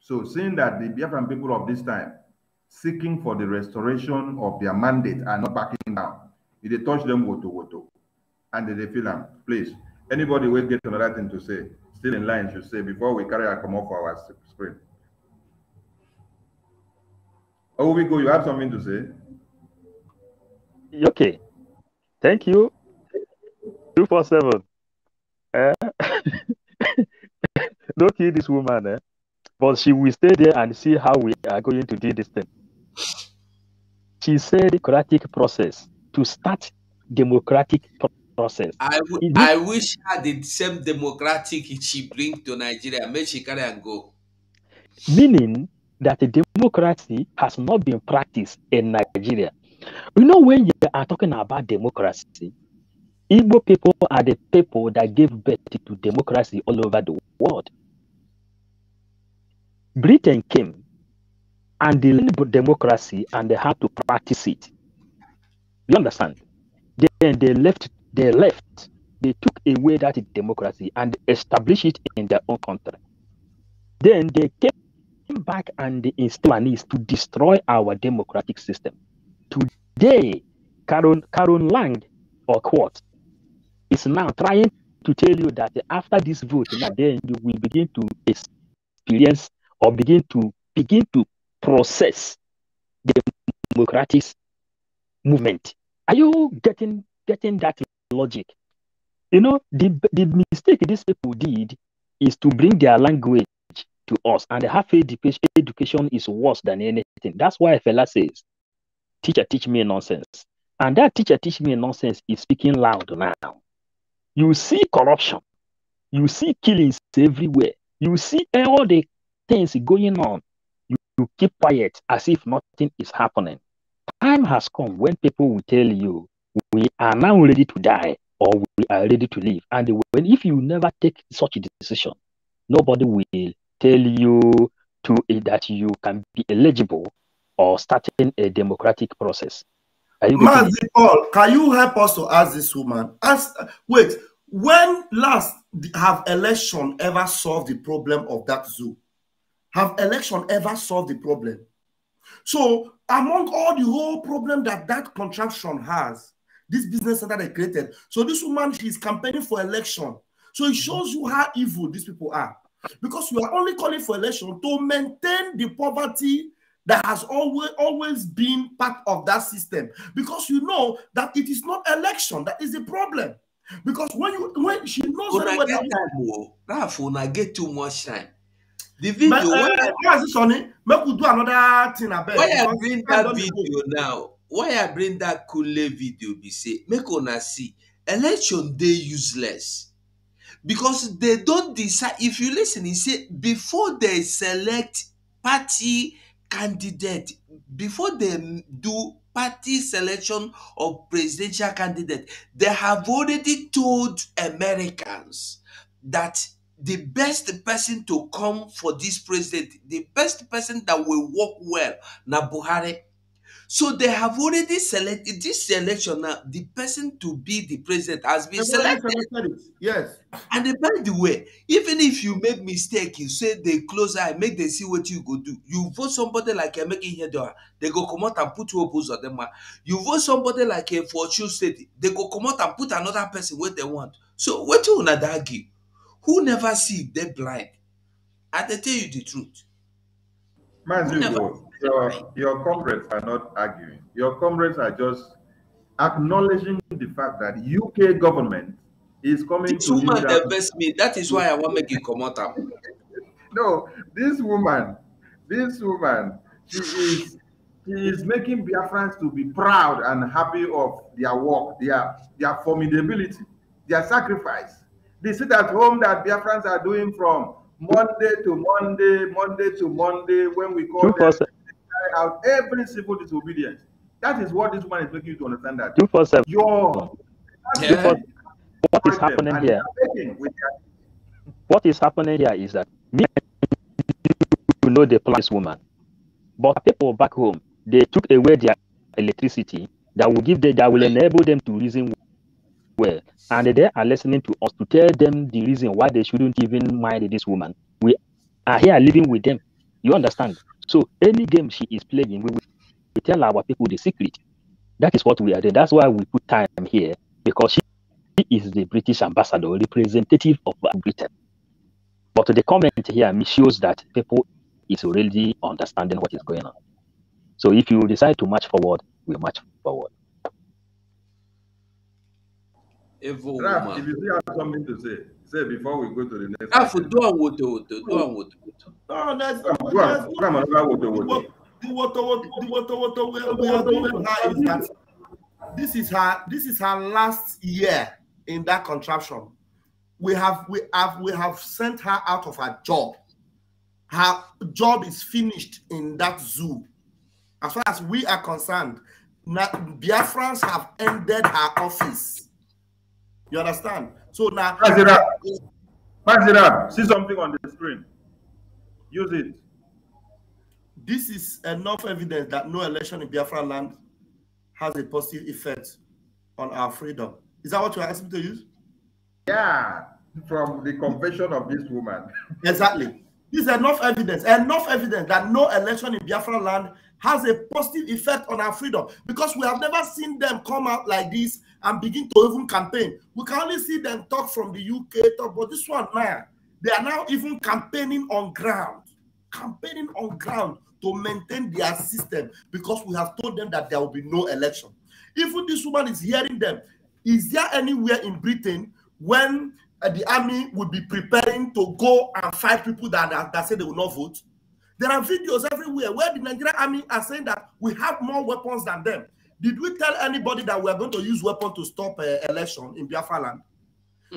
So seeing that the Biafran people of this time seeking for the restoration of their mandate are not backing down, if they touch them, go to go to. And they feel them. Please, anybody will get another thing to say, still in line should say before we carry our come off our screen. Oh, we go. You have something to say? Okay. Thank you. Two four seven. Uh, don't kill this woman, eh? but she will stay there and see how we are going to do this thing. She said the process to start democratic process. I wish I the same democratic she bring to Nigeria, make she carry and go. Meaning that the democracy has not been practiced in Nigeria. You know, when you are talking about democracy, Igbo people are the people that gave birth to democracy all over the world. Britain came and they learned democracy and they had to practice it. You understand? Then they left, they left, they took away that democracy and established it in their own country. Then they came back and they installed to destroy our democratic system. Today, Karen, Karen Lang or quote, is now trying to tell you that after this vote, now then you will begin to experience or begin to begin to process the democratic movement. Are you getting getting that logic? You know, the the mistake these people did is to bring their language to us, and the half education education is worse than anything. That's why Fela says, "Teacher, teach me nonsense," and that teacher teach me nonsense is speaking loud now. You see corruption, you see killings everywhere, you see all the things going on. You, you keep quiet as if nothing is happening time has come when people will tell you, we are now ready to die or we are ready to live. And when, if you never take such a decision, nobody will tell you to eh, that you can be eligible or starting a democratic process. Mazi Paul, can you help us to ask this woman? Ask, wait, when last have election ever solved the problem of that zoo? Have election ever solved the problem? So among all the whole problem that that contraption has, this business center they created. So this woman, she's campaigning for election. So it shows you how evil these people are. Because you are only calling for election to maintain the poverty that has always always been part of that system. Because you know that it is not election that is the problem. Because when you when she knows when oh. I get time, that, that, that, that, that, that, the video. Uh, why is this on Make we do another thing about Why I bring that video now? Why I bring that Kule video? Be say make una see election day useless because they don't decide. If you listen, he say before they select party candidate, before they do party selection of presidential candidate, they have already told Americans that the best person to come for this president, the best person that will work well, na Buhari. So they have already selected this election now. The person to be the president has been selected. selected. Yes. And by the way, even if you make mistake, you say they close eye, make them see what you go do. You vote somebody like a making Hedora, they go come out and put two opposed on them. You vote somebody like a fortune state, they go come out and put another person what they want. So what you wanna argue? Who never see they blind? I tell you the truth. Mazugo, your, your comrades are not arguing. Your comrades are just acknowledging the fact that UK government is coming this to woman divorce me. That is why I want make you come out. no, this woman, this woman, she is she is making Biafrans to be proud and happy of their work, their their formidability, their sacrifice the sit at home that Biafrans are doing from Monday to Monday, Monday to Monday, when we call them out every civil disobedience. That is what this woman is making you to understand that. 247. Your, yeah. What is happening here? What is happening here is that me you know the plan woman. But people back home, they took away their electricity that will give them that will enable them to reason well and they are listening to us to tell them the reason why they shouldn't even marry this woman. We are here living with them. You understand? So any game she is playing, we, we tell our people the secret. That is what we are doing. That's why we put time here because she, she is the British ambassador, representative of Britain. But the comment here shows that people is already understanding what is going on. So if you decide to march forward, we march forward woman. If you still have something to say, say before we go to the next. Raf, do a do a No, that's uh, this is her, this is her last year in that contraption. We have, we have, we have sent her out of her job. Her job is finished in that zoo. As far as we are concerned, Biafrans have ended her office. You understand? So now. Pass it up. Pass it up. See something on the screen. Use it. This is enough evidence that no election in Biafra land has a positive effect on our freedom. Is that what you're asking me to use? Yeah, from the confession of this woman. exactly. This is enough evidence, enough evidence that no election in Biafra land has a positive effect on our freedom because we have never seen them come out like this and begin to even campaign. We can only see them talk from the UK, talk, but this one now, they are now even campaigning on ground, campaigning on ground to maintain their system because we have told them that there will be no election. Even this woman is hearing them. Is there anywhere in Britain when uh, the army would be preparing to go and fight people that, that, that say they will not vote? There are videos everywhere where the Nigerian army are saying that we have more weapons than them. Did we tell anybody that we are going to use weapons to stop uh, election in Biafra land?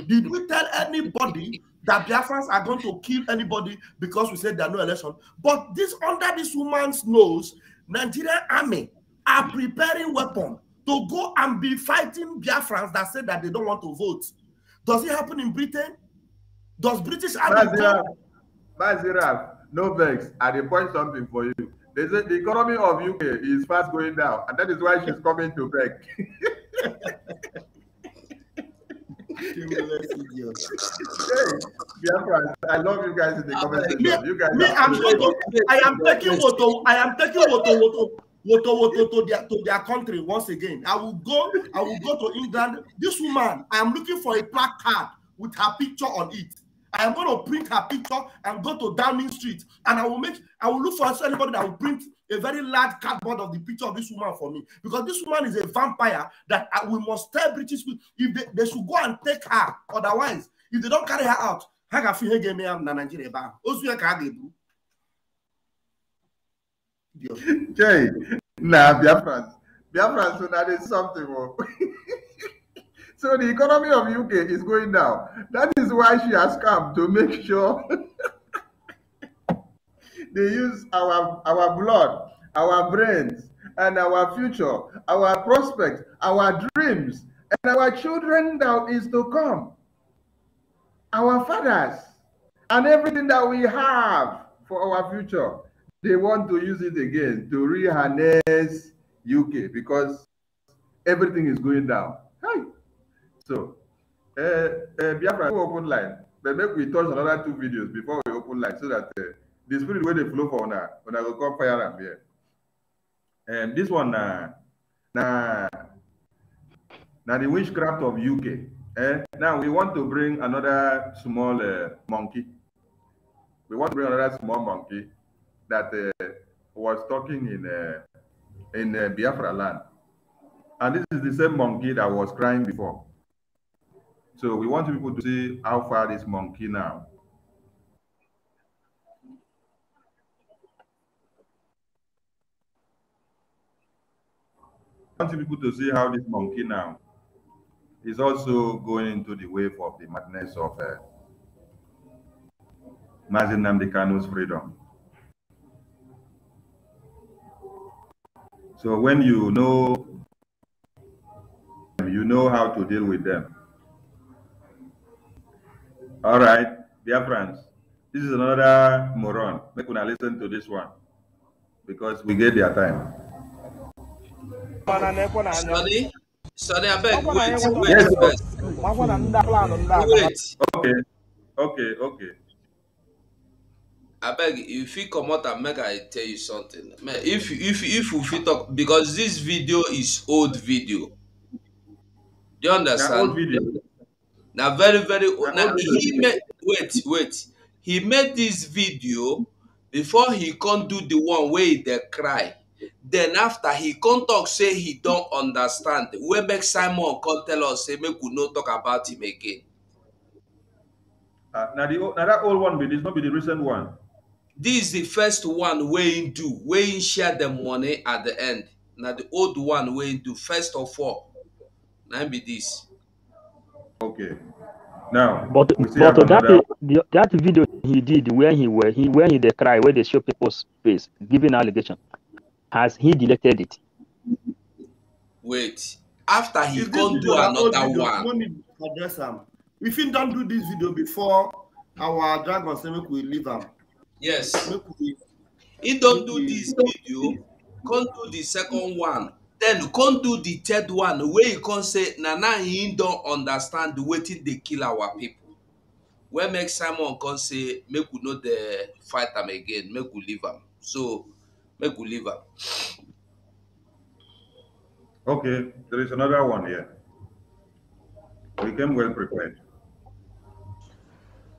Did we tell anybody that Biafrans are going to kill anybody because we said there are no election? But this under this woman's nose, Nigerian army are preparing weapons to go and be fighting Biafrans that said that they don't want to vote. Does it happen in Britain? Does British army? Bazira, Bazira, no vex. I did point something for you. They said the economy of UK is fast going down, and that is why she's coming to beg. Biafra, I love you guys in the comments section. You guys, me, I'm so, I am taking water. I am taking water. Woto, Woto to their to their country once again. I will go, I will go to England. This woman, I am looking for a placard with her picture on it. I am going to print her picture and go to Downing Street, and I will make I will look for anybody that will print a very large cardboard of the picture of this woman for me because this woman is a vampire that I, uh, we must tell British people if they, they should go and take her. Otherwise, if they don't carry her out, ha ga-afụ ihe ga-eme ya na Naịjirịa ebe ahụ ozu ya ka a ga-ebu Jay, na Biafrans Biafrans na dị something So the economy of UK is going down. That is why she has come to make sure they use our our blood, our brains, and our future, our prospects, our dreams, and our children that is to come, our fathers, and everything that we have for our future. They want to use it again to reharness UK because everything is going down. Hey. So, uh, uh, Biafra, open line. But make we touch another two videos before we open line so that uh, the spirit where they flow for una, I go come fire am here. and this one now, now now the witchcraft of UK. Now we want to bring another small uh, monkey. We want to bring another small monkey that uh, was talking in uh, in Biafra land, and this is the same monkey that was crying before. So we want people to see how far this monkey now. want people to see how this monkey now is also going into the wave of the madness of uh, Mazin Namdekano's freedom. So when you know, you know how to deal with them. All right, dear friends, this is another moron. Make una listen to this one because we get their time. Sorry, sorry, I beg. Wait, wait, yes, wait. Okay, okay, okay. I beg you, if you come out and make I tell you something. Man, if if if you fit talk because this video is old video. Do you understand? Yeah, old video na very very old na he make wait wait he make this video before he come do the one wey he dey cry then after he come talk say he don understand wey make simon come tell us say make we no talk about him again. Uh, na the na that old one be this no be the recent one. this is the first one wey he do wey he share the money at the end na the old one wey he do first of all na him be this. Okay. Now, but but that the, that video he did where he where he where he they cry where they show people's face giving allegation, has he deleted it? Wait, after he Is gone do another one. Address him. If he don't do this video before our dragon say make we leave him. Yes. Make He don't do this video. Come do the second one Then, come do the third one wey you come say na now him don understand wetin dey kill our people." wey make simon come say make we no dey fight am again make we leave am so make we leave am okay there is another one here we came well prepared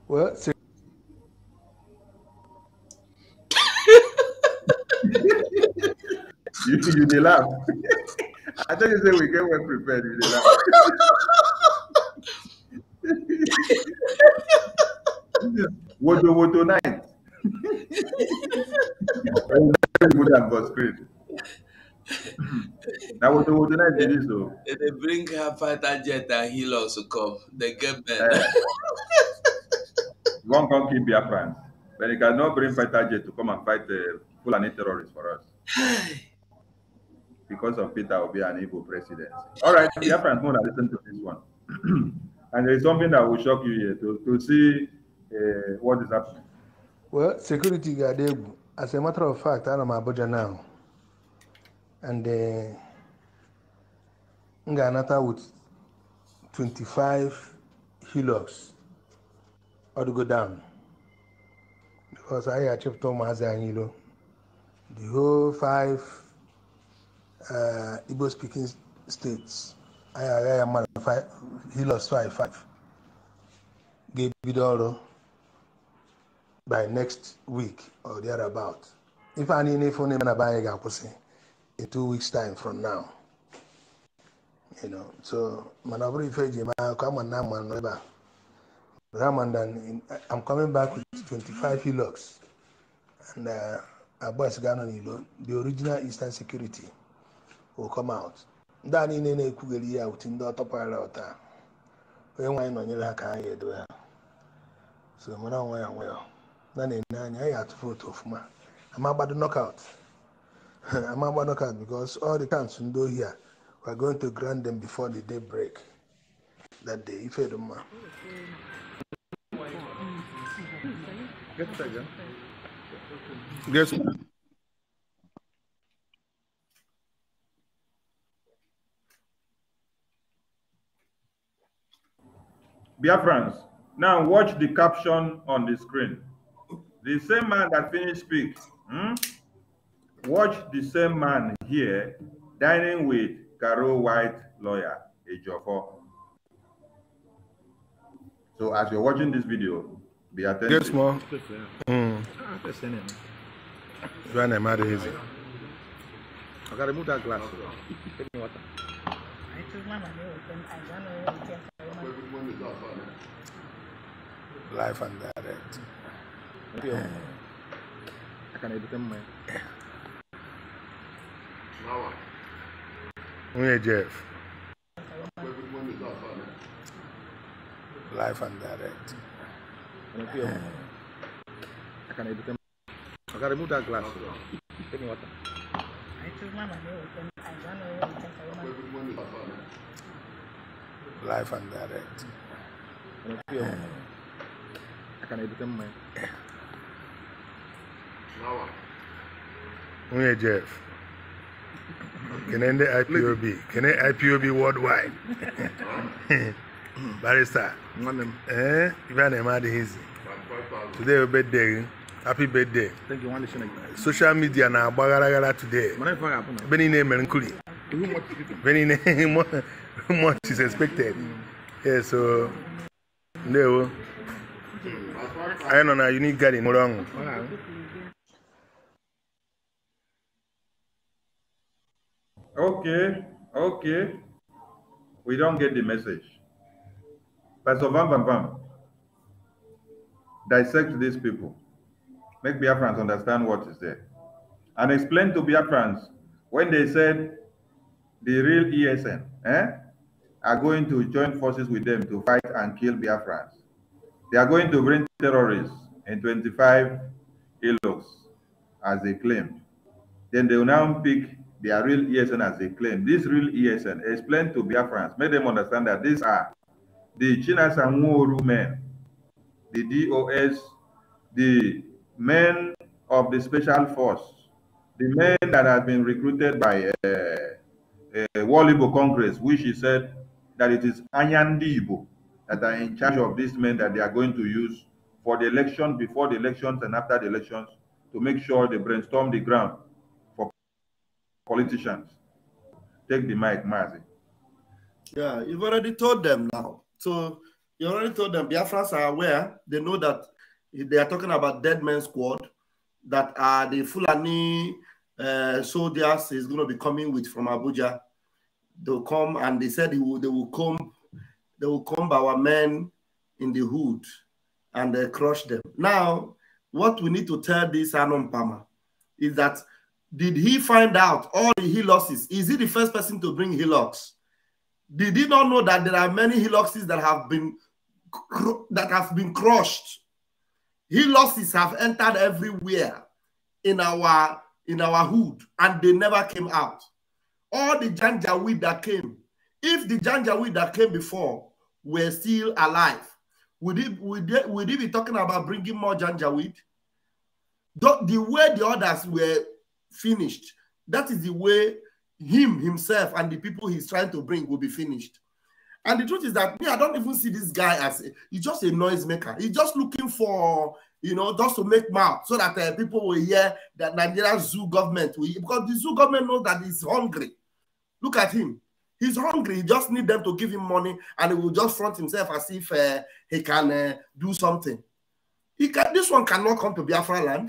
well You you laugh. I thought you said we get well prepared. You they laugh. Wodo wodo night. good and God's great. That wodo wodo night do oh. so. They bring her fighter jet and he'll also come. They get better. Uh, one can keep friends, But you cannot bring fighter jet to come and fight the uh, Fulani terrorists for us. because of Peter be an evil president. All right, Biafrans more listen to this one. and there is something that will shock you here to, to see uh, what is happening. Well, security guard, as a matter of fact, I am Abuja now. And uh, Nganata with 25 Hilux or to go down. Because I achieved Thomas Anilo. The whole five uh, Igbo speaking states ayaraya mara hilos five ga-ebido ọrụ by next week or thereabout ife a niile ife na-eme na be anyị ga-akwụsị in two weeks time from now you know so mana ọ bụrụ ife eji eme akụkọ ama na ama nọ ebe a Ramadan, I'm coming back with 25 hillocks and uh, Abbas nilo. the original Eastern Security. will come out ndị a niile na-ekwugheri ya wuti ndị ọtọpara ọta onye nwaanyị nọnyere ha ka anyị edowe ha so mara onwe ya onwe ya na na-enye anya anyị atụ vootu ọfụma amagbado knockout amagbado knockout because all the camps ndị ohi a we are going to grant them before the day break that day ife dị mma Yes, sir. Biafrans, now watch the caption on the screen. The same man that finished speak, hmm? watch the same man here dining with Carol White lawyer, Ejofo. So as you're watching this video, be attentive. Yes, ma. Mm. Joanna, I'm I gotta move that glass. when Life and direct. I can edit them, man. Now Jeff? Life and direct. I can edit them. I gotta remove that glass. Give me water. I my money. I don't know life and direct. I can edit them, man. Jeff? Can end the IPOB. Can end IPOB worldwide. Barrister. Eh? Even a mad Today your birthday. Happy birthday. Thank you. Social media na agbagharagara today. Beni na-emere very much, much is expected. Yeah, so there we go. I know you need garden. Hold Okay, okay. We don't get the message. Pastor Van Van Van, dissect these people. Make Biafrans understand what is there. And explain to Biafrans when they said the real ESN, eh, are going to join forces with them to fight and kill Biafrans. They are going to bring terrorists and 25 ILOs, as they claim. Then they will now pick their real ESN as they claim. This real ESN, explain to Biafrans, make them understand that these are the Chinas and Wuru men, the DOS, the men of the special force, the men that have been recruited by uh, uh, World Igbo Congress, which he said that it is Anyandi Igbo that are in charge of these men that they are going to use for the election, before the elections, and after the elections to make sure they brainstorm the ground for politicians. Take the mic, Mazi. Yeah, you've already told them now. So you already told them Biafrans are aware. They know that they are talking about dead men squad that are the Fulani uh, soldiers is going to be coming with from Abuja. They'll come and they said they will, they will come, they will come our men in the hood and they uh, crush them. Now, what we need to tell this Anon Pama is that did he find out all the hillocks? Is he the first person to bring helox? Did he not know that there are many heloxes that have been that have been crushed? Hillocks have entered everywhere in our in our hood and they never came out. All the Janjaweed that came, if the Janjaweed that came before were still alive, would he would would be talking about bringing more Janjaweed? The, the way the others were finished, that is the way him himself and the people he's trying to bring will be finished. And the truth is that me, I don't even see this guy as a, he's just a noisemaker. He's just looking for you know, just to make mouth so that uh, people will hear that Nigeria zoo government will, because the zoo government knows that he's hungry. Look at him. He's hungry. He just need them to give him money and he will just front himself as if uh, he can uh, do something. He can, this one cannot come to Biafra land.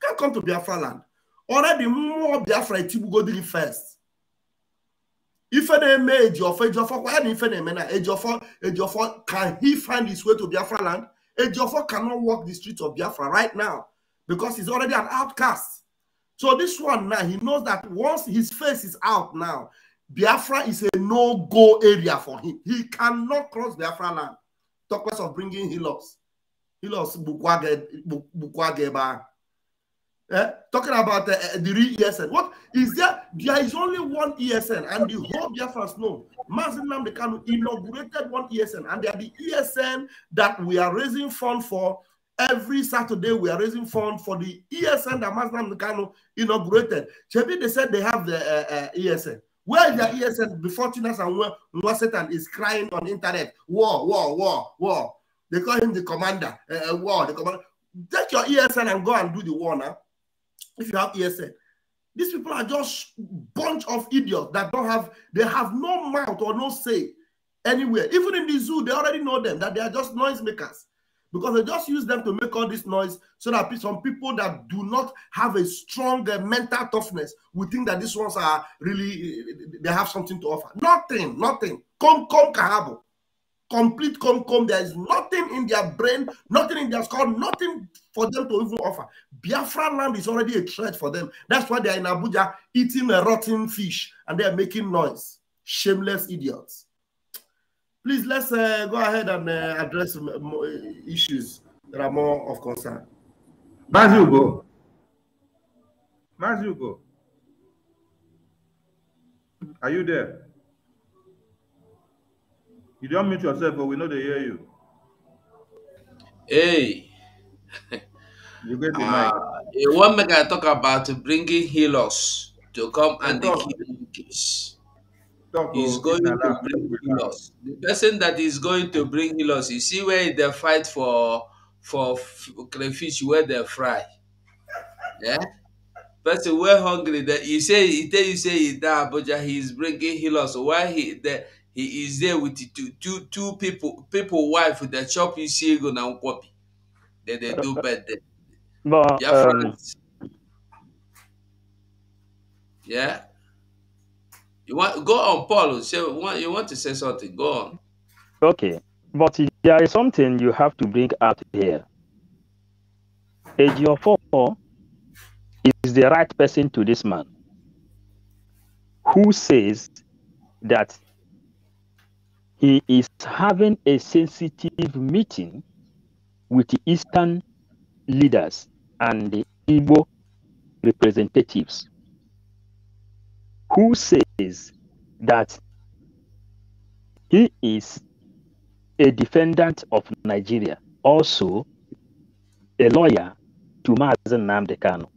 He can't come to Biafra land. Already more Biafra the first. If any age if any of if any age if any of can he find his way to Biafra land? Ejiofor cannot walk the streets of Biafra right now because he's already an outcast. So this one now, he knows that once his face is out now, Biafra is a no-go area for him. He cannot cross Biafra land. Talk less of bringing Hilos. Hilos Bukwageba eh, talking about uh, the ESN. What is there? There is only one ESN, and the whole Biafrans know. Mazin Namdekanu inaugurated one ESN, and they are the ESN that we are raising funds for. Every Saturday, we are raising funds for the ESN that Mazin Namdekanu inaugurated. Chebi, they said they have the uh, uh, eh, ESN. Where is the ESN before Tunas and Wasetan is crying on internet? War, war, war, war. They call him the commander. Uh, war, the commander. Take your ESN and go and do the war now if you have ESN. Eh, these people are just bunch of idiots that don't have, they have no mouth or no say anywhere. Even in the zoo, they already know them, that they are just noisemakers. Because they just use them to make all this noise so that some people that do not have a strong eh, mental toughness will think that these ones are really, eh, they have something to offer. Nothing, nothing. Come, come, Kahabo complete come There is nothing in their brain, nothing in their skull, nothing for them to even offer. Biafra land is already a threat for them. That's why they're in Abuja eating a rotten fish and they're making noise. Shameless idiots. Please, let's uh, go ahead and uh, address issues that are more of concern. Mazugo. go. Are you there? You don't mute yourself, but we know they hear you. Hey. you get the uh, mic. One make I talk about bringing healers to come and the healing oh, He's going to bring healers. The person that is going to bring healers, you see where they fight for for crayfish where they fry. Yeah? Person we're hungry, that you say he tell you say he that Abuja, is bringing healers. Why he the he is there with the two two two people people wife that chop you see go now copy then they do better but yeah um, yeah you want go on paul say you want to say something go on okay but there is something you have to bring out here Age 4 is the right person to this man who says that he is having a sensitive meeting with the Eastern leaders and the Igbo representatives, who says that he is a defendant of Nigeria, also a lawyer to Mazen Namdekano.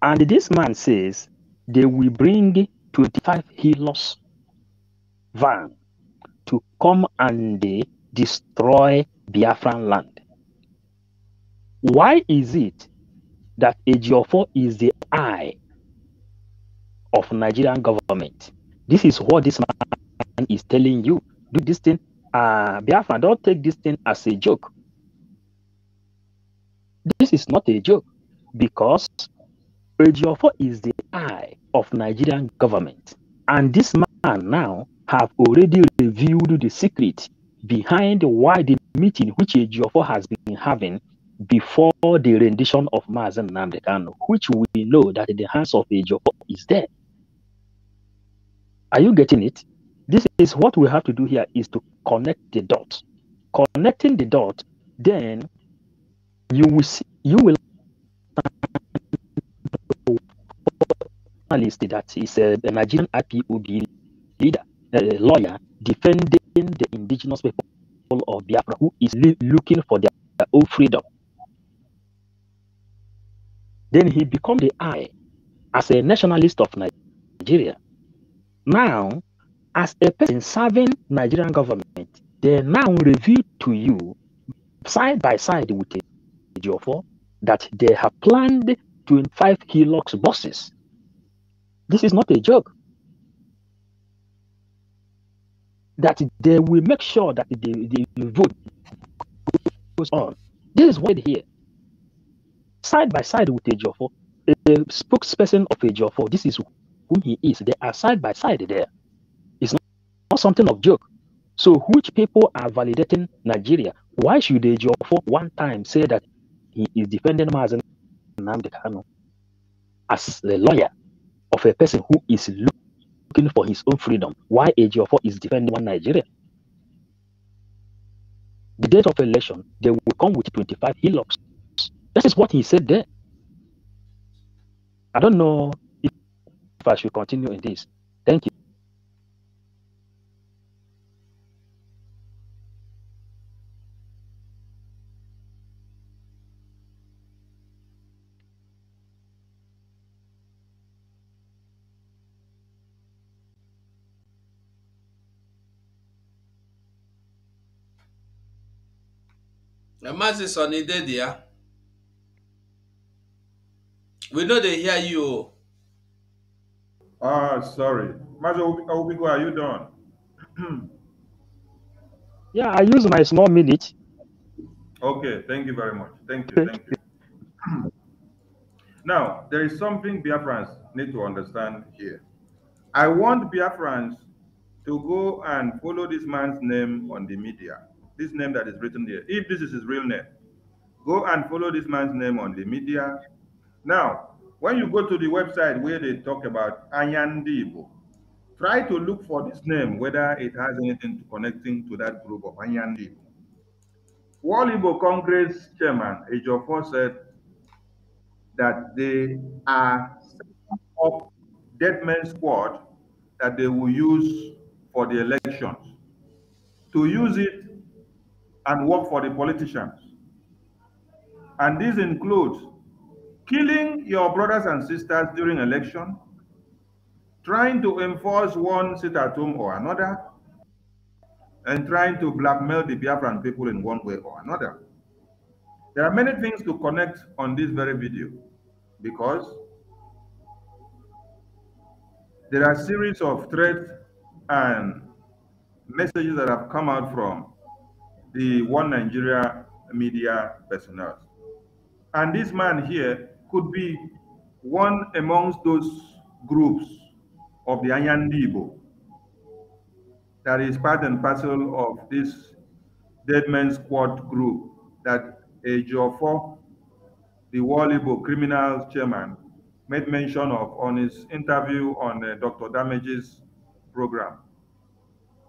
And this man says they will bring 25 healers van to come and destroy Biafran land. Why is it that AGO4 is the eye of Nigerian government? This is what this man is telling you. Do this thing, uh, Biafran, don't take this thing as a joke. This is not a joke because AGO4 is the eye of Nigerian government. And this man now have already revealed the secret behind why the meeting which Ejiofor has been having before the rendition of Mazen Namdekano, which we know that the hands of Ejiofor is there. Are you getting it? This is what we have to do here is to connect the dots. Connecting the dot, then you will see, you will that is a uh, Nigerian IPOB leader lawyer defending the indigenous people of Biafra who is looking for their, their own freedom. Then he became the eye as a nationalist of Nigeria. Now, as a person serving Nigerian government, they now reveal to you side by side with Geofor that they have planned 25 Hilux buses. This is not a joke. that they will make sure that the, the vote goes on. This is what here. Side by side with Ejofo, the spokesperson of Ejofo, this is who he is. They are side by side there. It's not, not something of joke. So which people are validating Nigeria? Why should Ejofo one time say that he is defending Mazen Namdekano as the lawyer of a person who is looking looking for his own freedom, why AG4 is defending one Nigeria? The date of election, they will come with 25 hillocks. This is what he said there. I don't know if I should continue in this. Thank you. Maazị Sunny Dede ya we know they hear you Ah, sorry. Maazị Obigo, are you done? yeah, I use my small minute. Okay, thank you very much. Thank you, thank you. now, there is something Biafrans need to understand here. I want Biafrans to go and follow this man's name on the media this name that is written there, if this is his real name, go and follow this man's name on the media. Now, when you go to the website where they talk about Anyandibo, try to look for this name, whether it has anything to connecting to that group of Anyandibo. Walibo Congress Chairman Ejiofor said that they are up dead men squad that they will use for the elections. To use it and work for the politicians. And this includes killing your brothers and sisters during election, trying to enforce one sit at home or another, and trying to blackmail the Biafran people in one way or another. There are many things to connect on this very video because there are series of threats and messages that have come out from the One Nigeria media personnel. And this man here could be one amongst those groups of the Anyandibo that is part and parcel of this dead man squad group that Ejiofor, the Wallibo criminal chairman, made mention of on his interview on uh, Dr. Damage's program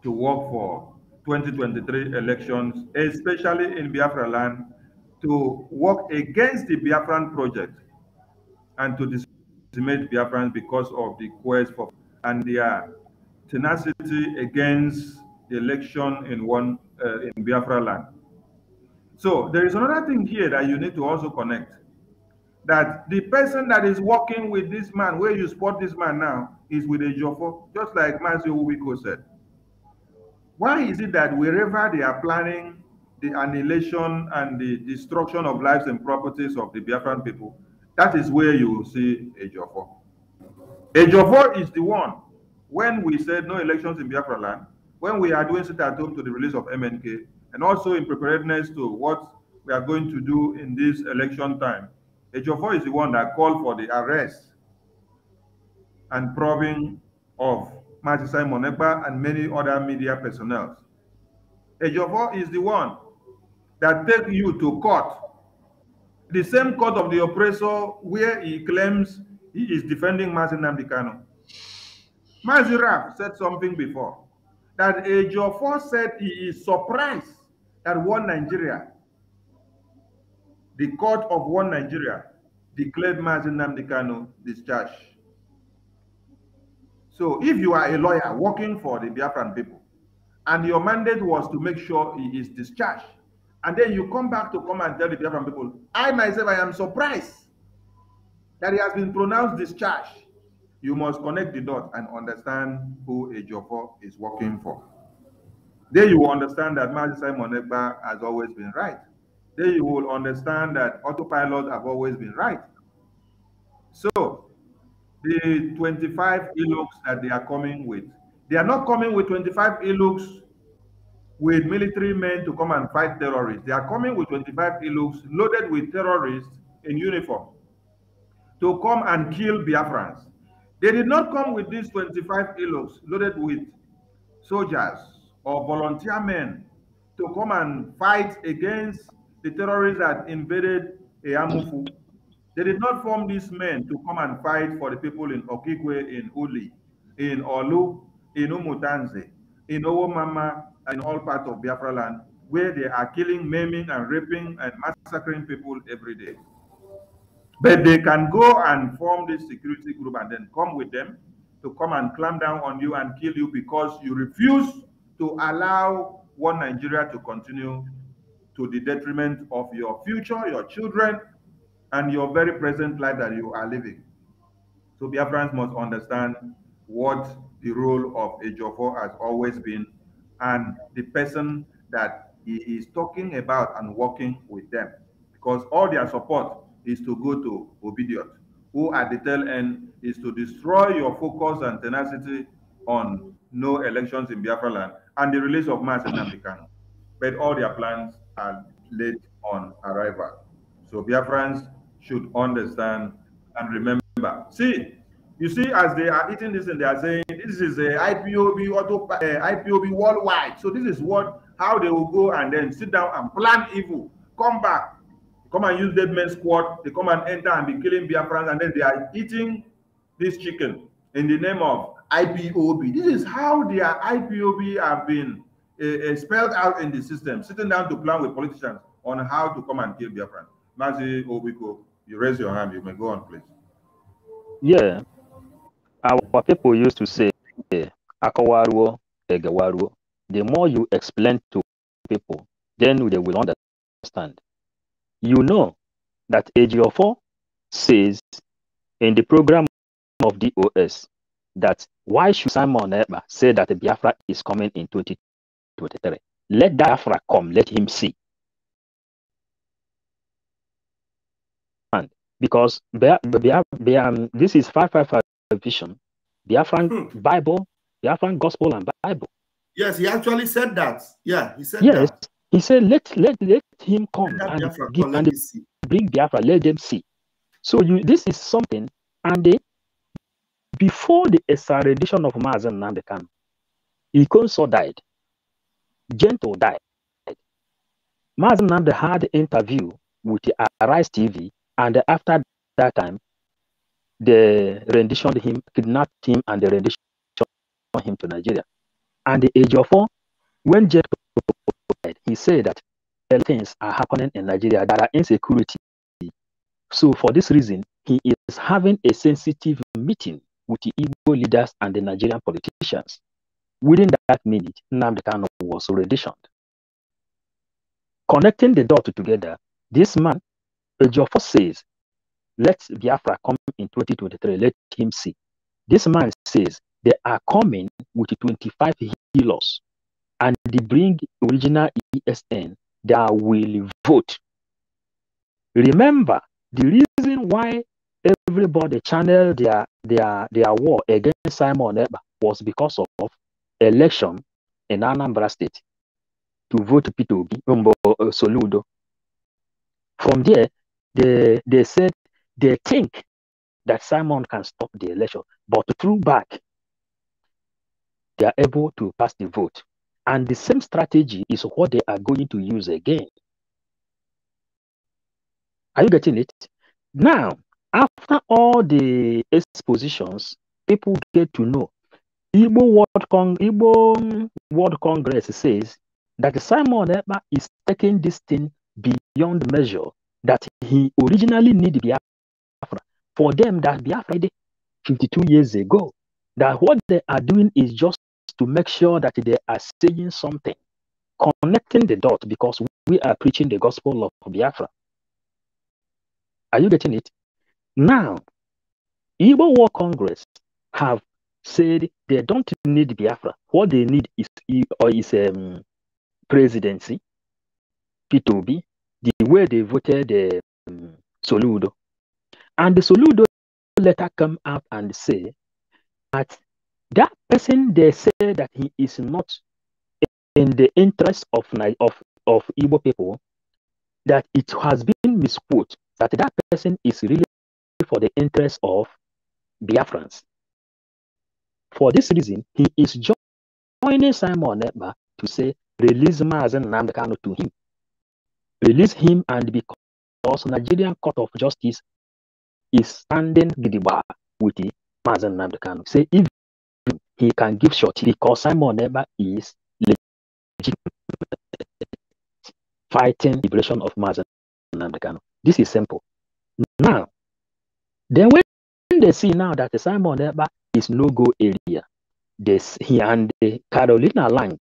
to work for 2023 elections, especially in Biafra land, to work against the Biafran project and to decimate Biafrans because of the quest for and their tenacity against the election in one uh, in Biafra land. So there is another thing here that you need to also connect that the person that is working with this man, where you spot this man now, is with a Jofo, just like Mazio Ubiko said. Why is it that wherever they are planning the annihilation and the destruction of lives and properties of the Biafran people, that is where you will see Ejiofor. Ejiofor is the one when we said no elections in Biafra land, when we are doing sit at home to the release of MNK, and also in preparedness to what we are going to do in this election time, Ejiofor is the one that called for the arrest and probing of Martin Simon Ekpa, and many other media personnel. Ejiofor is the one that take you to court, the same court of the oppressor where he claims he is defending Martin Namdekano. Mazi said something before, that Ejiofor said he is surprised that one Nigeria, the court of one Nigeria, declared Martin Namdekano discharged. So if you are a lawyer working for the Biafran people, and your mandate was to make sure he is discharged, and then you come back to come and tell the Biafran people, I myself, I am surprised that he has been pronounced discharged. You must connect the dots and understand who Ejiofor is working for. Then you will understand that Mazi Simon Egba has always been right. Then you will understand that autopilot have always been right. So the 25 e-looks that they are coming with. They are not coming with 25 e-looks with military men to come and fight terrorists. They are coming with 25 e-looks loaded with terrorists in uniform to come and kill Biafrans. They did not come with these 25 e-looks loaded with soldiers or volunteer men to come and fight against the terrorists that invaded Eamufu they did not form these men to come and fight for the people in Okigwe, in Uli, in Olu, in Umutanze, in Owomama, and all parts of Biafra land, where they are killing, maiming, and raping and massacring people every day. But they can go and form this security group and then come with them to come and clamp down on you and kill you because you refuse to allow one Nigeria to continue to the detriment of your future, your children, and your very present life that you are living. So Biafrans must understand what the role of a Jofo has always been and the person that he is talking about and working with them. Because all their support is to go to Obediot, who at the tail end is to destroy your focus and tenacity on no elections in Biafra land and the release of mass in Africano, But all their plans are laid on arrival. So Biafrans should understand and remember. See, you see, as they are eating this and they are saying, this is a IPOB auto uh, eh, IPOB worldwide. So this is what how they will go and then sit down and plan evil. Come back, come and use dead men's squad. They come and enter and be killing Biafrans, and then they are eating this chicken in the name of IPOB. This is how their IPOB have been uh, uh, spelled out in the system, sitting down to plan with politicians on how to come and kill Biafrans. Mazi Obiko. You raise your hand. You may go on, please. Yeah. Our people used to say, The more you explain to people, then they will understand. You know that AGO4 says in the program of DOS that why should Simon Eber say that Biafra is coming in 2023? Let Biafra come, let him see. because they, Bia, hmm. um, this is 555 vision, Biafran hmm. Bible, Biafran Gospel and Bible. Yes, he actually said that. Yeah, he said yes, that. He said, let, let, let him come let and, Biafra, give, and bring Biafra, let them see. So you, this is something, and they, before the extradition of Mazen Nandekan, Ikonso died. Gento died. Mazen Nande had interview with Arise TV and after that time, they renditioned him, kidnapped him, and they renditioned him to Nigeria. And the age of four, when Jet died, he said that things are happening in Nigeria that are insecurity. So for this reason, he is having a sensitive meeting with the Igbo leaders and the Nigerian politicians. Within that minute, Nnamdi Kano was renditioned. Connecting the dots together, this man Force says, let Biafra come in 2023. Let him see. This man says they are coming with 25 healers and they bring original ESN. that will vote. Remember, the reason why everybody channeled their, their, their war against Simon Eba was because of election in Anambra State to vote Peter Obi, uh, Soludo. From there, they, they said they think that Simon can stop the election, but through back, they are able to pass the vote. And the same strategy is what they are going to use again. Are you getting it? Now, after all the expositions, people get to know. Igbo World, Cong- Igbo World Congress says that Simon Eber is taking this thing beyond measure that he originally needed Biafra. For them, that Biafra did 52 years ago, that what they are doing is just to make sure that they are saying something, connecting the dot because we are preaching the gospel of Biafra. Are you getting it? Now, Igbo War Congress have said they don't need Biafra. What they need is or is um, presidency, P2B, the way they voted um, Soludo. And the Soludo later come out and say that that person they say that he is not in the interest of of of Igbo people, that it has been misquoted that that person is really for the interest of Biafrans. For this reason, he is joining Simon Ekpa to say release Mazen Namdekano to him release him and because Nigerian Court of Justice is standing Gidigba with the Mazen Namdekan. Say if he can give short because Simon Eber is fighting liberation of Mazen Namdekan. This is simple. Now, then when they see now that Simon Eber is no-go area, this he and the Carolina Lang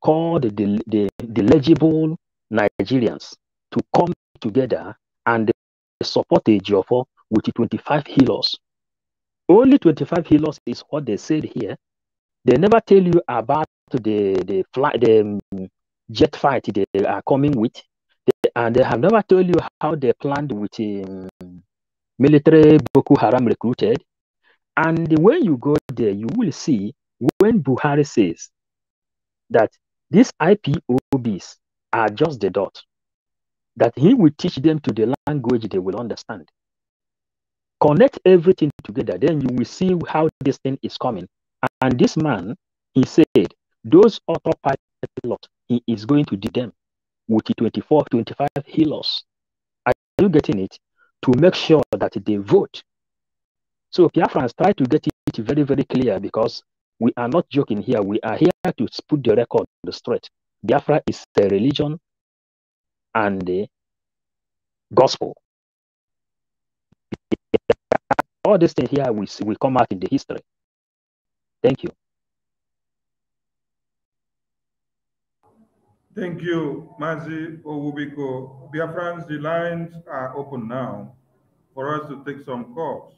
called the, the, the legible Nigerians to come together and support Ejiofor with 25 healers. Only 25 healers is what they said here. They never tell you about the the, fly, the um, jet fight they are coming with, they, and they have never told you how they planned with um, military Boko Haram recruited. And when you go there, you will see when Buhari says that these IPOBs are just the dot. That he will teach them to the language they will understand. Connect everything together, then you will see how this thing is coming. And this man, he said, those autopilot, he is going to do them with 24, 25 healers. Are you getting it? To make sure that they vote. So Pierre France, try to get it very, very clear because we are not joking here. We are here to put the record straight. Biafra is the religion and the gospel. All these things here will, will come out in the history. Thank you. Thank you, Mazi Owubiko. Biafrans, the lines are open now for us to take some calls.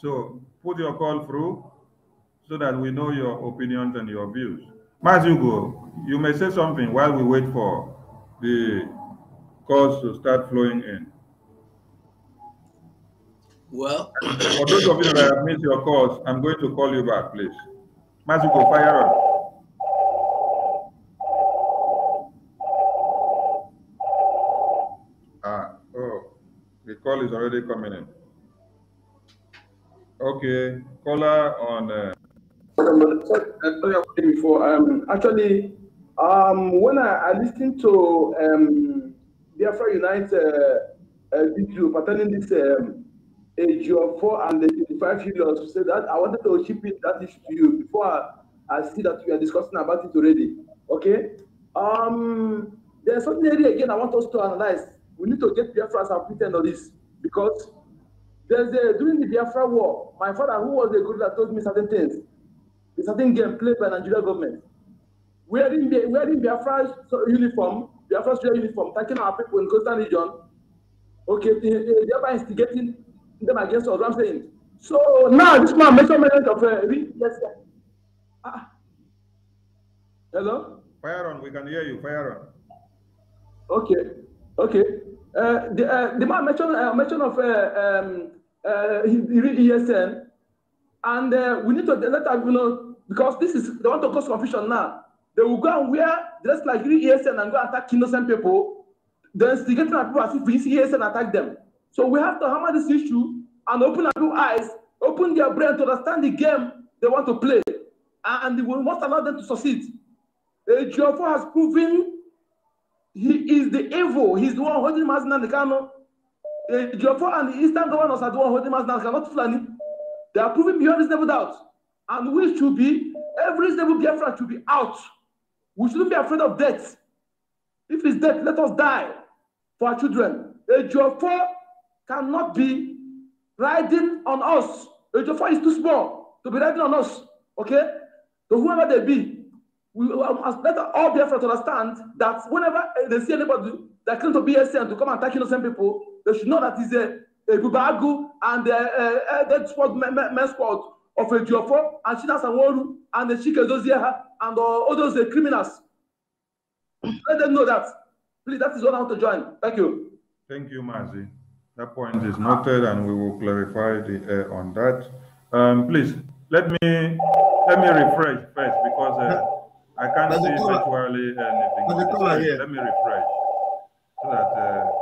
So put your call through so that we know your opinions and your views. Mazugo, you may say something while we wait for the calls to start flowing in. Well, for those of you that have missed your calls, I'm going to call you back, please. Mazugo, fire up. Ah, oh, the call is already coming in. Okay, caller on. Uh, before. Um, actually, um, when I, I listened to um, Biafra Unite uh, uh, video pertaining this um, age of four and the 25 years, said that I wanted to ship it that issue to you before I, I see that we are discussing about it already. Okay. Um, there's something area again I want us to analyze. We need to get the as a on this because there's a, during the Biafra war, my father, who was a that told me certain things a certain game played by Nigeria government, wearing the wearing first uniform, first uniform, attacking our people in coastal region, okay, thereby instigating them against us. I'm saying. So now this man makes a mention of uh, yes, sir. Ah. Hello. Fire on. We can hear you. Fire on. Okay. Okay. Uh, the uh, the man mentioned uh, mention of uh, um, uh, ESN, and uh, we need to let us you know Because this is, they want to cause confusion now. They will go and wear dress like real ESN and go attack innocent people. They're instigating at people as if it's ESN attack them. So we have to hammer this issue and open our new eyes, open their brain to understand the game they want to play. And, we must allow them to succeed. Uh, Geoffrey has proven he is the evil. He's the one holding Mazinan Kano. Uh, Geoffrey and the Eastern governors are the one holding Mazinan Kano, not Fulani. They are proving beyond this never doubt. And we should be, every single Biafran should be out. We shouldn't be afraid of death. If it's death, let us die for our children. A Jofo cannot be riding on us. A Jofo is too small to be riding on us. Okay? So whoever they be, we must um, let all Biafra understand that whenever they see anybody that claims to be a saint to come and attack innocent people, they should know that it's a, a Bubagu and that's what a squad, men squad of a GFO and a waru, and the Chike Dozieha and uh, all those uh, criminals. Let them know that. Please, that is what I want to join. Thank you. Thank you, Mazi. That point is noted, and we will clarify the uh, on that. Um, please let me let me refresh first because uh, I can't see virtually anything. Let me refresh so that. Uh,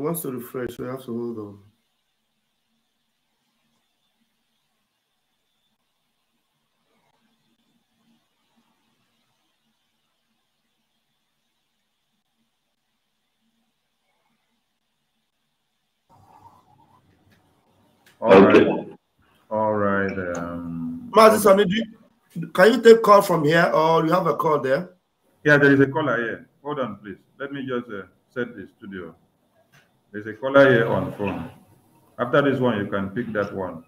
It wants to refresh, so you have to hold on. All okay. right. All right. Um, Master can you take call from here or you have a call there? Yeah, there is a caller here. Hold on, please. Let me just uh, set the studio. There's a caller here on phone. After this one, you can pick that one.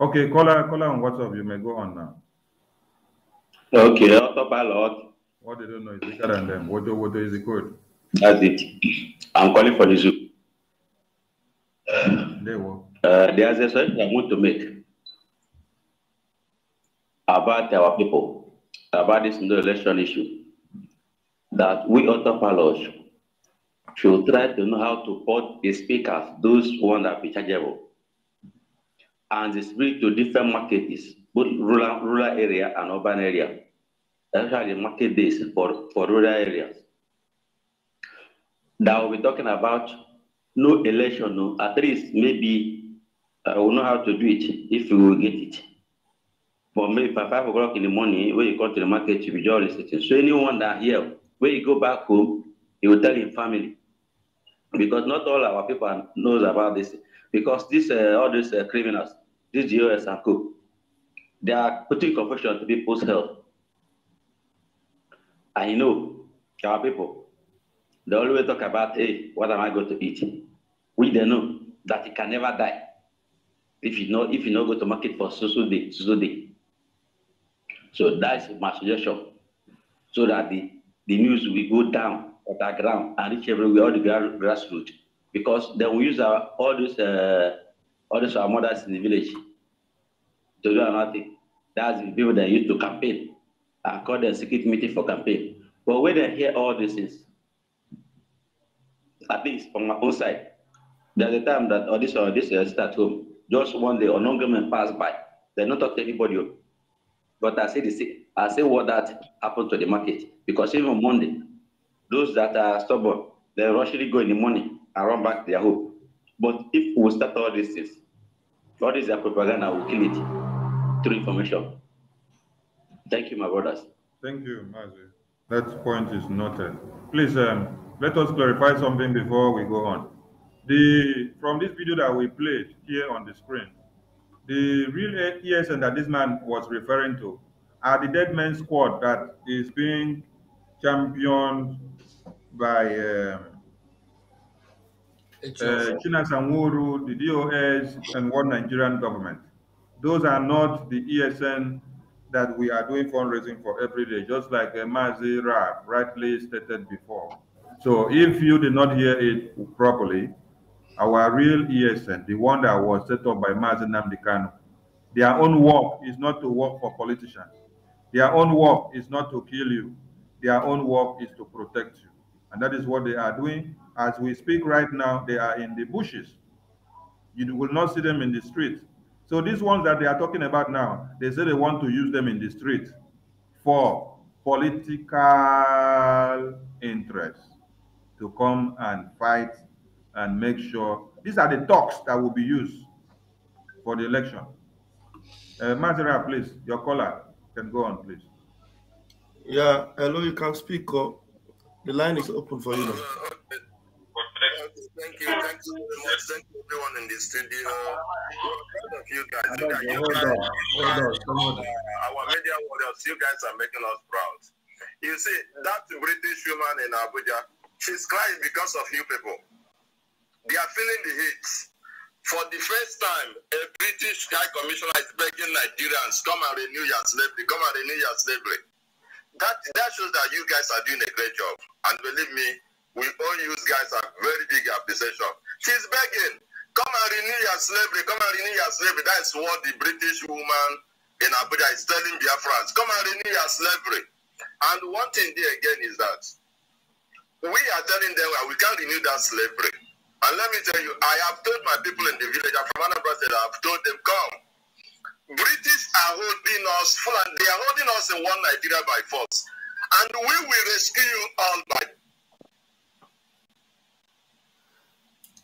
Okay, caller, caller on WhatsApp. You may go on now. Okay, autopilot. What they don't know is bigger than them. What do, what do is the code? That's it. I'm calling for the zoo. They were. Uh, there's a suggestion I want to make about our people, about this election issue, that we autopilot should will try to know how to put the speakers, those one that be chargeable, and distribute to different markets, both rural, rural area and urban area. That's the market this for, for rural areas. Now we're talking about no election, no, at least maybe I will know how to do it if we will get it. But maybe by five o'clock in the morning, when you go to the market, you will be just listening. So anyone that here, when you go back home, he will tell his family. Because not all our people knows about this. Because this, uh, all these uh, criminals, these GOS and co, they are putting confusion to people's health. I know our people, they always talk about, hey, what am I going to eat? We they know that he can never die if you know if you not go to market for susu day, susu day. So that's my suggestion. So that the, the news will go down at the ground and reach everywhere, all the grassroots, because they will use our, all those, uh, all those our mothers in the village to do nothing. That's the people that used to campaign. I call the secret meeting for campaign. But when they hear all these things, at least on my own side, there's a time that all this or this uh, start home. Just one day, non government passed by. They not talk to anybody. Oh. But I say the I say what that happened to the market because even Monday, those that are stubborn, they actually go in the morning and run back their hope. But if we start all these things, all this propaganda will kill it through information. Thank you, my brothers. Thank you, Mazi. That point is noted. Please um, let us clarify something before we go on. The from this video that we played here on the screen, the real ESN that this man was referring to are the dead men squad that is being championed by uh, uh, China uh, the DOS, and one Nigerian government. Those are not the ESN that we are doing fundraising for every day, just like uh, Mazi Rab rightly stated before. So if you did not hear it properly, our real ESN, the one that was set up by Mazi Namdekano, their own work is not to work for politicians. Their own work is not to kill you. Their own work is to protect you. And that is what they are doing. As we speak right now, they are in the bushes. You will not see them in the street. So these ones that they are talking about now, they say they want to use them in the street for political interests to come and fight and make sure these are the talks that will be used for the election. Uh, please, your caller can go on, please. Yeah, hello, you can speak. up. The line is open for you. Now. Thank you. Thank you very much. Thank you everyone in the studio. All of you guys. You guys, you guys on. Uh, our media warriors, you guys are making us proud. You see, that British woman in Abuja, she's crying because of you people. They are feeling the heat. For the first time, a British High Commissioner is begging Nigerians, come and renew your slavery, come and renew your slavery that that shows that you guys are doing a great job. And believe me, we all you guys have very big appreciation. She's begging, come and renew your slavery, come and renew your slavery. That is what the British woman in Abuja is telling Biafrans. Come and renew your slavery. And one thing there again is that we are telling them well, we can't renew that slavery. And let me tell you, I have told my people in the village, I'm from Anambra State, I have told them, come, British are holding us, they are holding us in one Nigeria by force. And we will rescue you all by.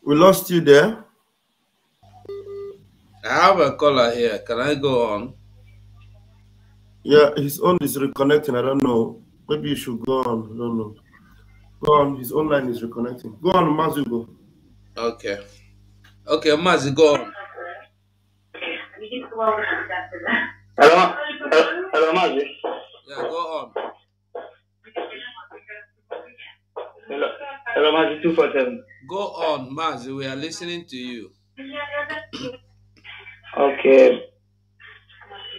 We lost you there. I have a caller here. Can I go on? Yeah, his own is reconnecting. I don't know. Maybe you should go on. I don't know. Go on. His online is reconnecting. Go on, Mazu. Go. Okay. Okay, Mazu, go on. Hello, hello, Mazi. Yeah, go on. Hello, hello, Mazi two four seven. Go on, Mazi. We are listening to you. okay.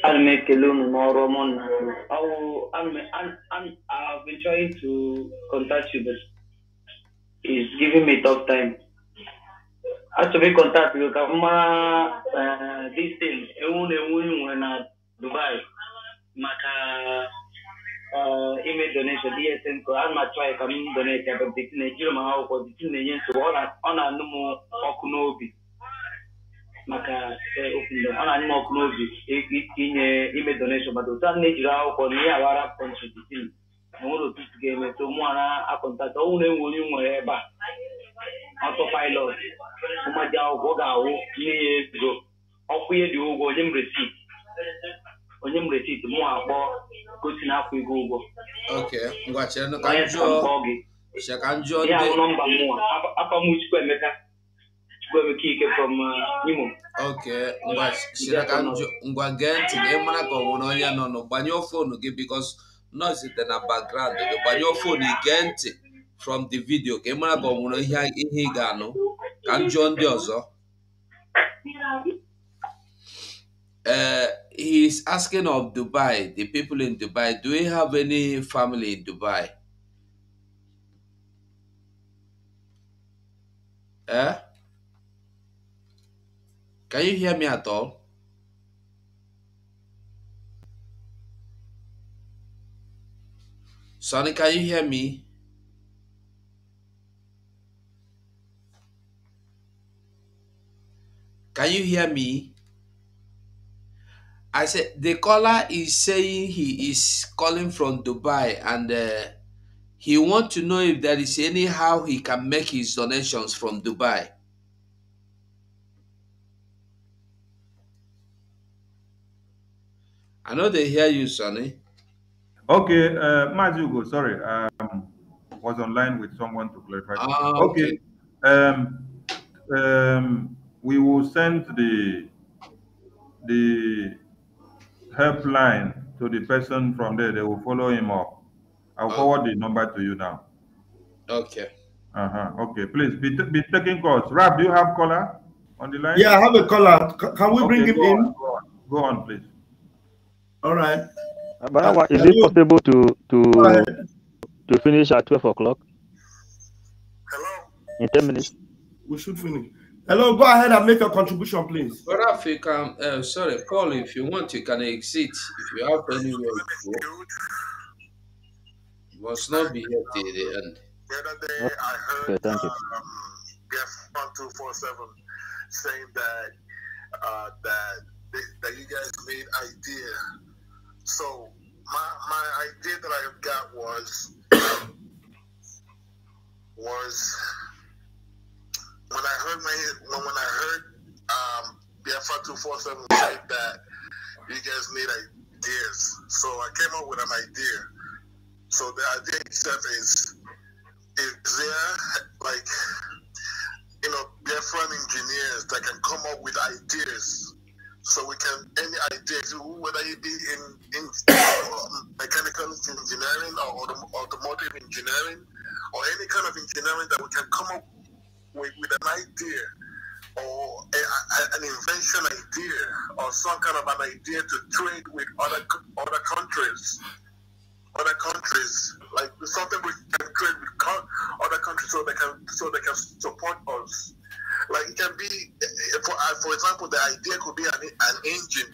I'll I make a loan tomorrow morning. will. i Moromon. i Alme, I've been trying to contact you, but it's giving me tough time. a kọntaktị ka m mara distin ewu na ewu nwere na dubai maka ime donation dsn ko a ma achọghị ka m donate ya bụt na-ejiri m akwụkwọ bitin na-enye nsogbu ọ na-anụ m ọkụ n'obi maka ọ na-anụ m ọkụ n'obi ime donation mana na-ejiri akwụkwọ na ihe awara kọntrị na onwere otu isi ga-emeta ụmụara akọntata ọnwụ na enwere onye nwere ebe a ọtọ pilot ụmụaji akwụkwọ ga-awụ nne ya ego ọkwụ ihe dị ụgwọ onye m resit onye m mụ akpọ gosi na akwụ ego ụgwọ ngwa gee ntị na ịmara ka ọ nwere onye nọ nụ gị bikos noise dị na background gị gbanyụọ fon ige from the video ka ị mara ka ọ nwere ihe ị ga-anụ ka m ndị ọzọ Uh, eh, he's asking of Dubai, the people in Dubai, do we have any family in Dubai? Eh? Can you hear me at all? Sonny, can you hear me? Can you hear me? I said the caller is saying he is calling from Dubai and uh, he want to know if there is any how he can make his donations from Dubai. I know they hear you, Sonny. Okay, uh, Mazugo, sorry, um, was online with someone to clarify. Ah, okay. okay. Um, um, we will send the the helpline to the person from there. They will follow him up. I'll oh. forward the number to you now. Okay. Uh huh. Okay. Please be, be taking calls. Rob, do you have caller on the line? Yeah, I have a caller. Can we okay, bring him in? go, on. go on, please. All right. Barawa, is it possible to to to finish at twelve o'clock? Hello. In ten minutes. We should finish. Hello, go ahead and make a contribution, please. Raf, you can. Uh, sorry, Paul, if you want, you can exit if you have anywhere to go. You must not be here till the end. The other day, okay. I heard okay, um, guest one two four seven saying that uh, that they, that you guys made idea so my my idea that I got was was when I heard my when, when I heard um, BFR two four seven say that you guys need ideas. So I came up with an idea. So the idea itself is is there like you know different engineers that can come up with ideas so we can any idea whether you be in, in um, mechanical engineering or automotive engineering or any kind of engineering that we can come up with, with an idea or a, a, an invention idea or some kind of an idea to trade with other other countries other countries like something we can trade with other countries so they can so they can support us like it can be, for, uh, for example, the idea could be an, an engine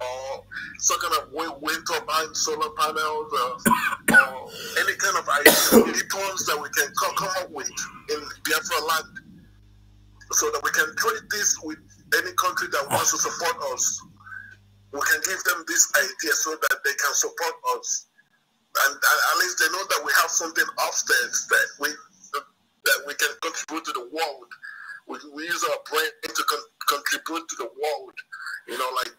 or some kind of wind turbine, solar panels, or, uh, or any kind of items that we can come, come up with in Biafra land, so that we can trade this with any country that wants to support us. We can give them this idea so that they can support us, and, and at least they know that we have something upstairs that we that we can contribute to the world we, we use our brain to con contribute to the world. You know, like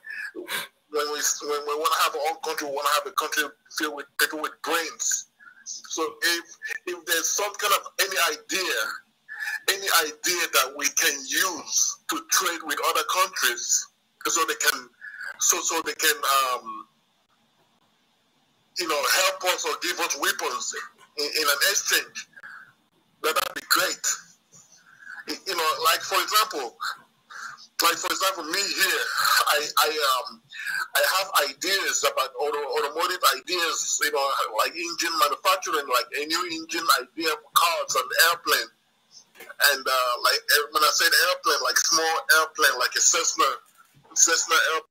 when we when we want to have our own country, we want to have a country filled with people with brains. So if if there's some kind of any idea, any idea that we can use to trade with other countries, so they can so so they can um, you know help us or give us weapons in, in an exchange, that would be great you know, like for example, like for example, me here, I I um I have ideas about auto, automotive ideas, you know, like engine manufacturing, like a new engine idea for cars and airplane, and uh, like when I said airplane, like small airplane, like a Cessna, Cessna airplane.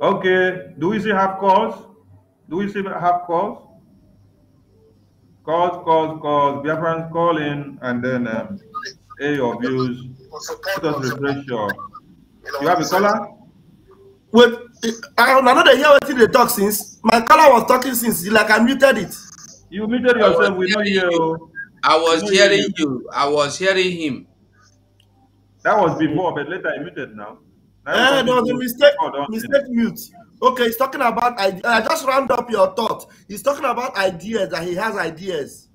Okay. Do we still have calls? Do we still have calls? Calls, calls, calls. Biafran calling and then um, A of views. Let us refresh your. You have a caller? Wait, I don't know they hear what they talk since. My caller was talking since, like I muted it. You muted yourself, we know you. I was hearing you. I was hearing him. That was before, but later I muted now. No, eh, there was a mistake, oh, mistake mute. Okay, he's talking about I just round up your thought. He's talking about ideas, that he has ideas.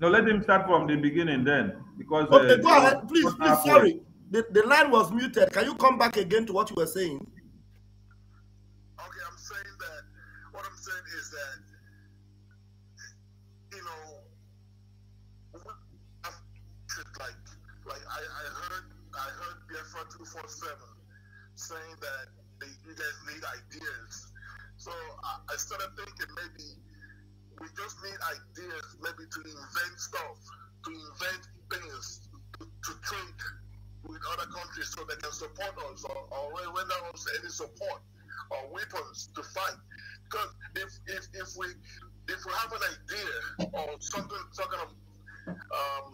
No, let him start from the beginning then. Because Okay, uh, go ahead. Please, please, sorry. The, the line was muted. Can you come back again to what you were saying? saying that they, you guys need ideas. So I, I started thinking maybe we just need ideas, maybe to invent stuff, to invent things, to, to trade with other countries so they can support us or, or render us any support or weapons to fight. Because if, if, if we if we have an idea or something some kind of um,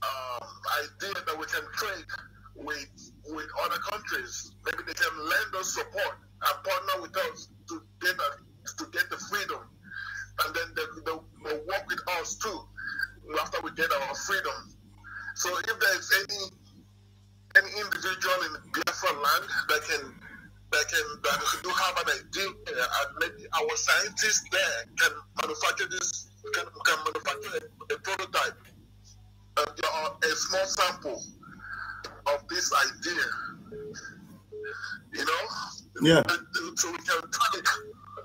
um, idea that we can trade with with other countries. Maybe they can lend us support and partner with us to get a, to get the freedom, and then they, they, will work with us too after we get our freedom. So if there is any any individual in Biafra land that can that can that do have an idea and maybe our scientists there can manufacture this can, can manufacture a, a prototype uh, a small sample of this idea. You know? Yeah. So we can pray,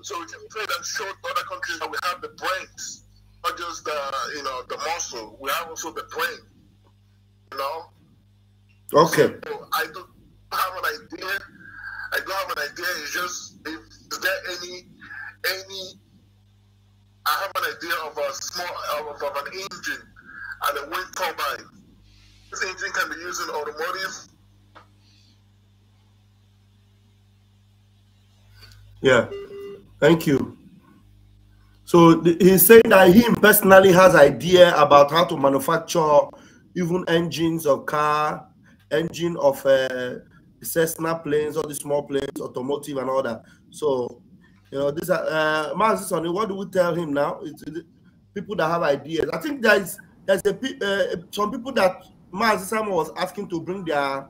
so we can pray and show other countries that we have the brains, not just the you know the muscle. We have also the brain. You know. Okay. So I don't have an idea. I don't have an idea. It's just if is there any any I have an idea of a small of, of an engine and a wind turbine this engine can be used in automotive. Yeah, thank you. So he's saying that him personally has idea about how to manufacture even engines of car, engine of uh, Cessna planes, all the small planes, automotive and all that. So, you know, this, are, uh, Master Sonny, what do we tell him now? It's, it's people that have ideas. I think there's, there's a, uh, some people that Mazi Simon was asking to bring their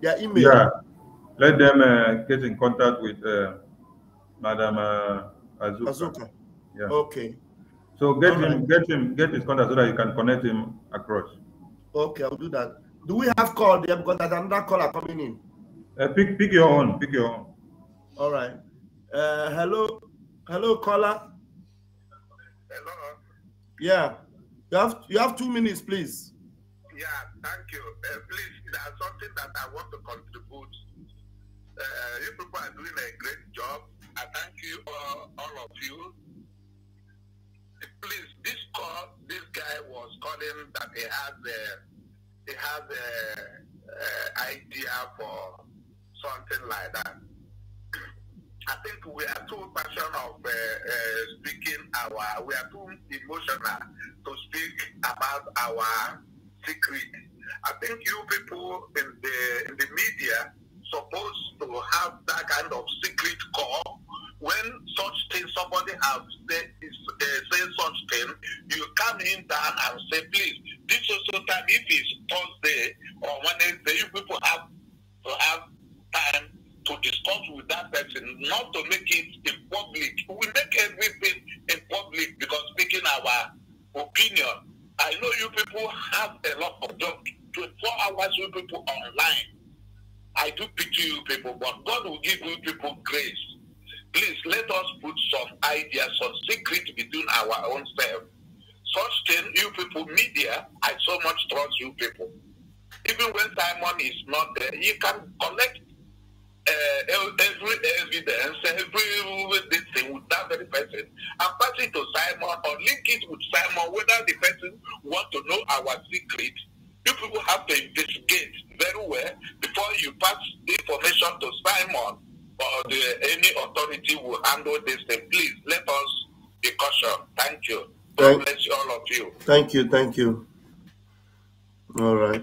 their email. Yeah, let them uh, get in contact with uh, Madam uh, Azuka. Azuka. Yeah. Okay. So get All him, right. get him, get his contact so that you can connect him across. Okay, I'll do that. Do we have call there because there's another caller coming in? Uh, pick, pick your own. Pick your own. All right. Uh, hello, hello, caller. Hello. Yeah, you have you have two minutes, please. Yeah, thank you. Uh, please, there's something that I want to contribute. Uh, you people are doing a great job. I thank you, all, uh, all of you. Please, this call, this guy was calling that he has a, he has a, a uh, idea for something like that. I think we are too passionate of uh, uh, speaking our, we are too emotional to speak about our secret. I think you people in the in the media supposed to have that kind of secret call when such thing somebody have said uh, say such thing, you come in down and say, please, this also time if it's Thursday or Wednesday, you people have to have time to discuss with that person, not to make it in public. We make everything in public because making our opinion I know you people have a lot of job. 24 hours you people online. I do pity you people, but God will give you people grace. Please let us put some ideas, some secret between our own self. Such thing, you people, media, I so much trust you people. Even when Simon is not there, you can connect uh, every evidence, every this thing with that very person, and pass it to Simon or link it with Simon, whether the person want to know our secret. You people have to investigate very well before you pass the information to Simon or the, any authority will handle this thing. Please let us be cautious. Thank you. God thank, bless you, all of you. Thank you. Thank you. All right.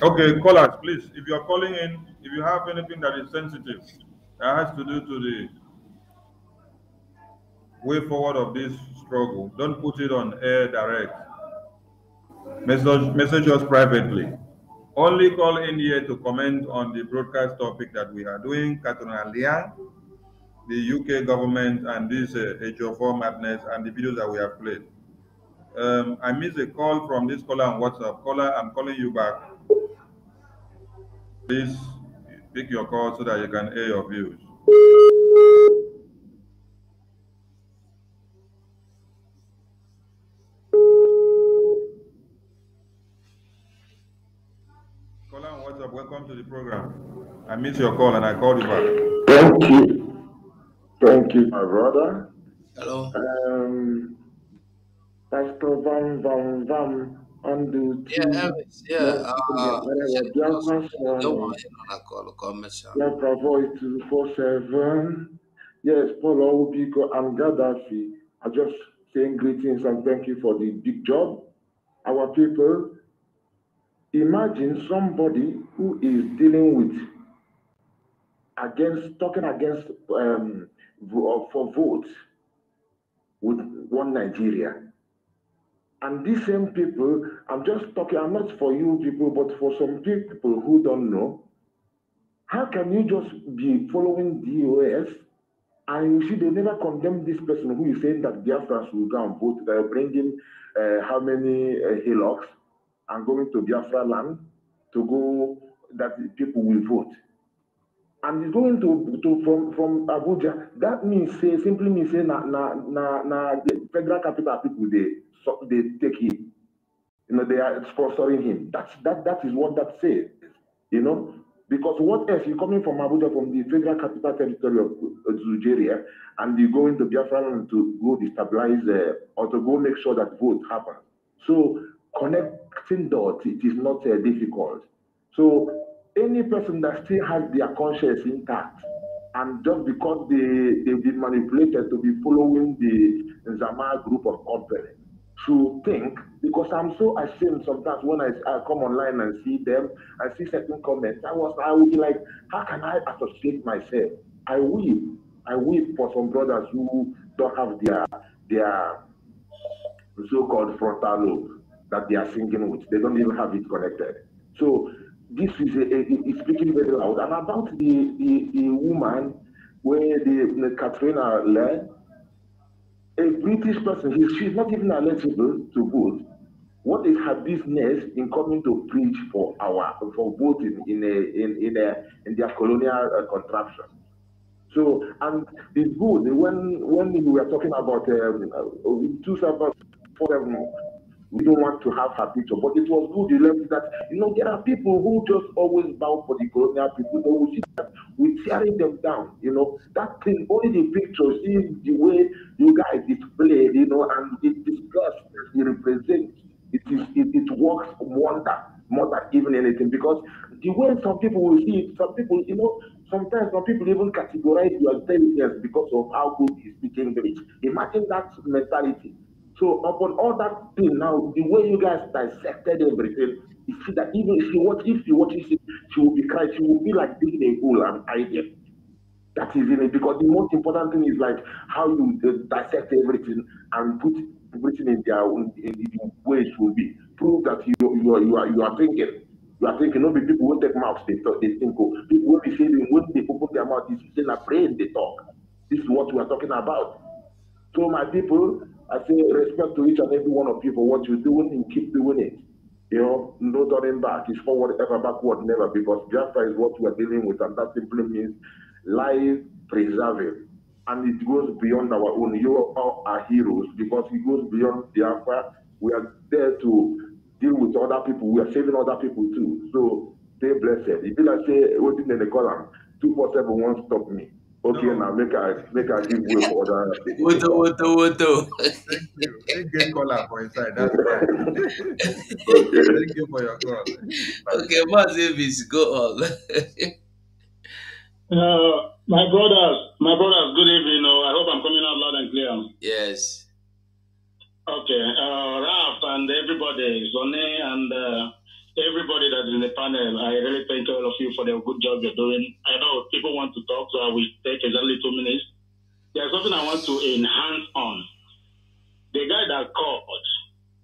Okay, callers, please. If you are calling in, if you have anything that is sensitive that has to do to the way forward of this struggle, don't put it on air direct. Message, message us privately. Only call in here to comment on the broadcast topic that we are doing, Katrina Liang, the UK government, and this uh, HO4 madness, and the videos that we have played. Um, I missed a call from this caller on WhatsApp. Caller, I'm calling you back. Please pick your call so that you can hear your views. Colin, what's up? Welcome to the program. I missed your call and I called you back. Thank you. Thank you, my brother. Hello. Um, Pastor Van Van Van undo. Yeah, yeah. Uh, yeah, Biafra Forum. Biafra Voice 247. Yes, Paul Obiko and Gaddafi are just saying greetings and thank you for the big job. Our people, imagine somebody who is dealing with against talking against um, for votes with one Nigeria and these same people, I'm just talking, I'm not for you people, but for some people who don't know, how can you just be following DOS and you see they never condemn this person who is saying that Biafrans will go and vote, they're bringing uh, how many uh, hillocks and going to Biafra land to go, that people will vote and he's going to to from from Abuja. That means say simply means say na na na na the federal capital people they so they take him. You know they are sponsoring him. That's that that is what that says. You know because what else you coming from Abuja from the federal capital territory of Nigeria and you go into Biafra Land to go destabilize uh, or to go make sure that vote happens. So connecting dots it is not uh, difficult. So any person that still has their conscience intact and just because they, they've been manipulated to be following the Zama group of order, to think, because I'm so ashamed sometimes when I, I come online and see them and see certain comments, I was I would be like, how can I associate myself? I weep. I weep for some brothers who don't have their their so-called frontal lobe that they are singing with. They don't even have it connected. So this is, a, a, speaking very loud. And about the, the, the woman where the, the Katrina led, a British person, he, she's not even eligible to vote. What is her business in coming to preach for our for voting in a in in a in their colonial uh, contraption? So and it's good when when we were talking about um, uh, two seven four seven um, we don't want to have her picture, but it was good. You learned that you know there are people who just always bow for the colonial people. But we see that we're tearing them down. You know that thing. Only the pictures, see the way you guys displayed. You know, and it disgusts it represents. It is it, it works wonder more than even anything because the way some people will see it, some people, you know, sometimes some people even categorize your intelligence because of how good you speak English. Imagine that mentality. So upon all that thing now, the way you guys dissected everything, you see that even if you watch, if you watch it, she will be crying, she will be like digging a hole and hiding. That is in it because the most important thing is like how you uh, dissect everything and put everything in their in, the way it should be. Prove that you you are you are, you are thinking. You are thinking, no, people won't take mouths, they talk, they think. Oh, people will be saying when they open their mouth, is in a brain they talk. This is what we are talking about. So my people, I say respect to each and every one of you for what you're doing and keep doing it. You know, no turning back. It's forward, ever backward, never, because Jaffa is what we're dealing with, and that simply means life preserving. And it goes beyond our own. You are our heroes because it goes beyond Biafra. We are there to deal with other people. We are saving other people too. So stay blessed. If you like say, in the column, Won't stop me. Okay, now make I make I give way for other. Woto woto woto. Thank you. Thank you for inside. That's right. Thank you for your call. Okay, Mas Davis, go on. uh, my brothers, my brothers, good evening. Oh, I hope I'm coming out loud and clear. Yes. Okay, uh, Ralph and everybody, Zone and. Uh, everybody that's in the panel, I really thank all of you for the good job you're doing. I know people want to talk, so I will take exactly two minutes. There's something I want to enhance on. The guy that called,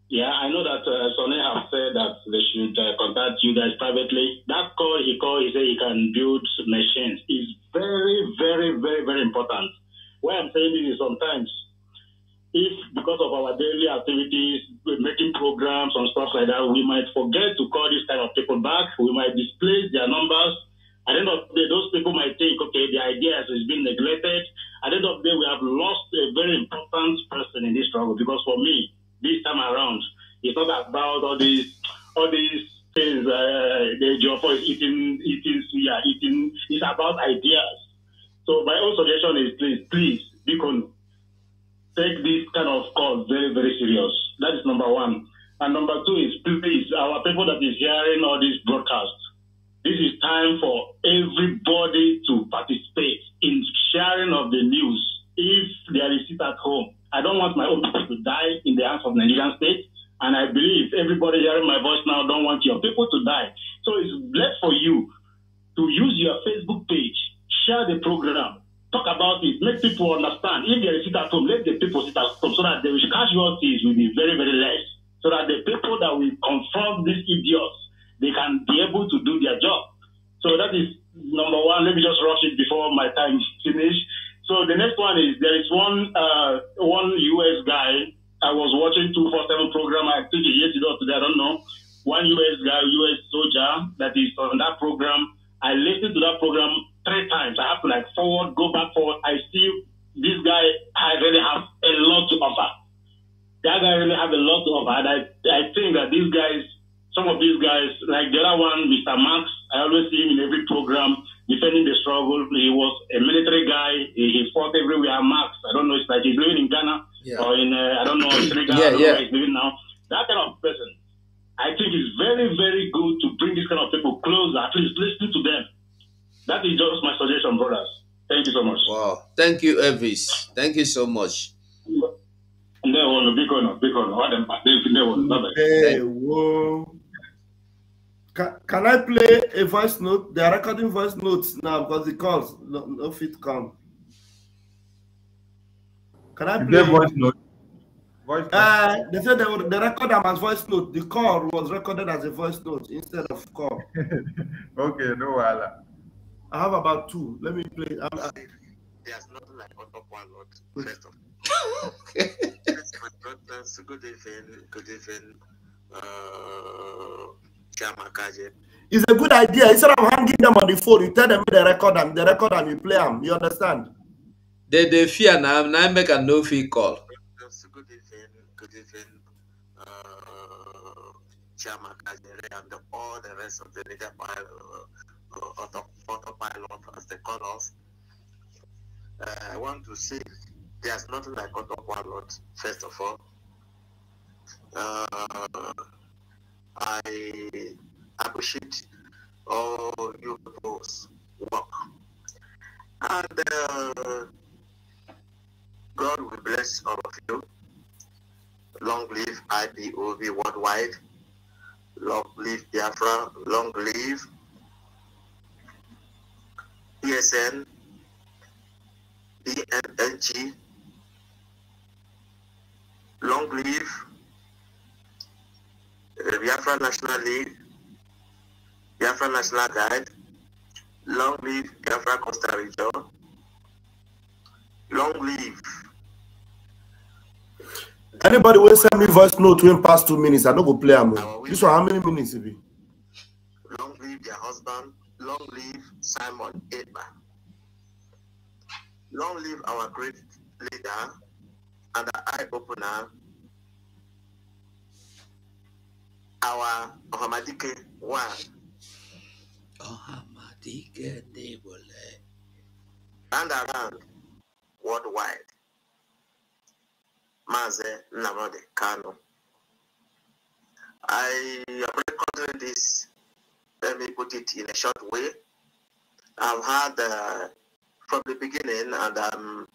yeah, I know that uh, Sonny has said that they should uh, contact you guys privately. That call he called, he said he can build machines. is very, very, very, very important. Why I'm saying this is sometimes if because of our daily activities, making programs and stuff like that, we might forget to call these kind of people back. We might displace their numbers. At the end of the day, those people might think, okay, the idea has been neglected. At the end of the day, we have lost a very important person in this struggle because for me, this time around, it's not about all these, all these things, uh, the job is eating, eating, are eating. It's about ideas. So my own suggestion is please, please, this kind of call very, very serious. That is number one. And number two is please, our people that is hearing all this please. Thank you so much. Can, I play a voice note? They are recording voice notes now because the calls no, no fit come. Can I play voice note? Voice uh, they said they, were, they record them as voice note. The call was recorded as a voice note instead of call. okay, no, I have about two. Let me play. I'm, I, there's not like on top one lot, of okay. Good evening, good evening, uh, It's a good idea. Instead of hanging them on the phone, you tell them the record and the record and you play them. You understand? They they fear now. Now make a no fee call. Good evening, good evening, uh, Chairman Kajere and all the rest of the leader pilot, uh, uh autopilot, as they call us. I want to say there's nothing like God of one Lord, first of all. Uh, I appreciate all your people's work. And uh, God will bless all of you. Long live IPOV worldwide. Long live Biafra. Long live PSN. B M N G. Long Live, uh, Biafra National League, Biafra National Guide, Long Live Biafra Costa Rica, Long Live. Anybody will send me voice note when past two minutes. I don't go play am. This one, how many minutes it be? Long live their husband. Long live Simon Edman. Long live our great leader and the eye opener, our Ohamadike one. Ohamadike Debole. And around worldwide. Maze Namode Kano. I am recording this, let me put it in a short way. I've had uh, from the beginning and um,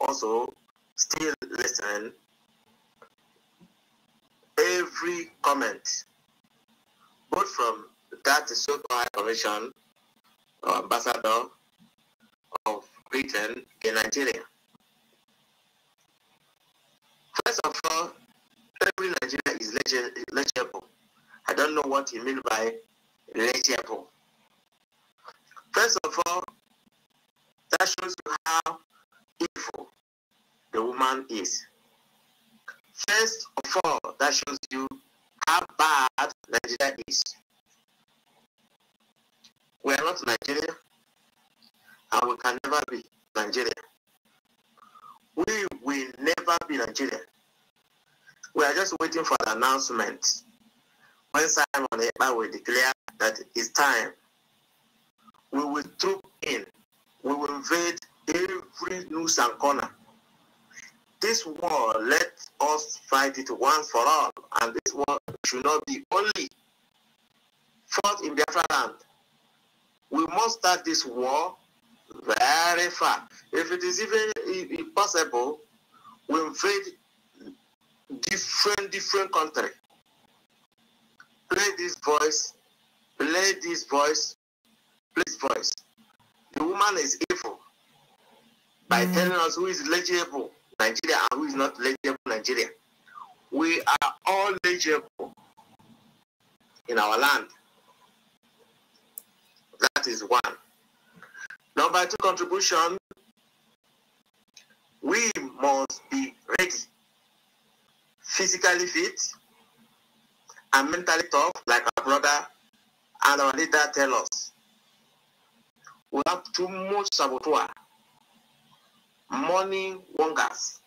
also still listen. Every comment, both from that so-called High Commission or uh, Ambassador of Britain in Nigeria. First of all, every Nigeria is legible. I don't know what you mean by legible. First of all, that shows you how evil the woman is. First of all, that shows you how bad Nigeria is. We are not Nigeria, and we can never be Nigeria. We will never be Nigeria. We are just waiting for the announcement when Simon Ekpa will declare that it's time. We will troop in we will invade every nook and corner. This war, let us fight it once for all, and this war should not be only fought in Biafra land. We must start this war very far. If it is even impossible, we invade different different country. Play this voice, play this voice, play this voice the woman is evil by mm. telling us who is legible Nigeria and who is not legible Nigeria. We are all legible in our land. That is one. Number two contribution, we must be ready, physically fit, and mentally tough, like our brother and our leader tell us we have too much saboteur, money wongers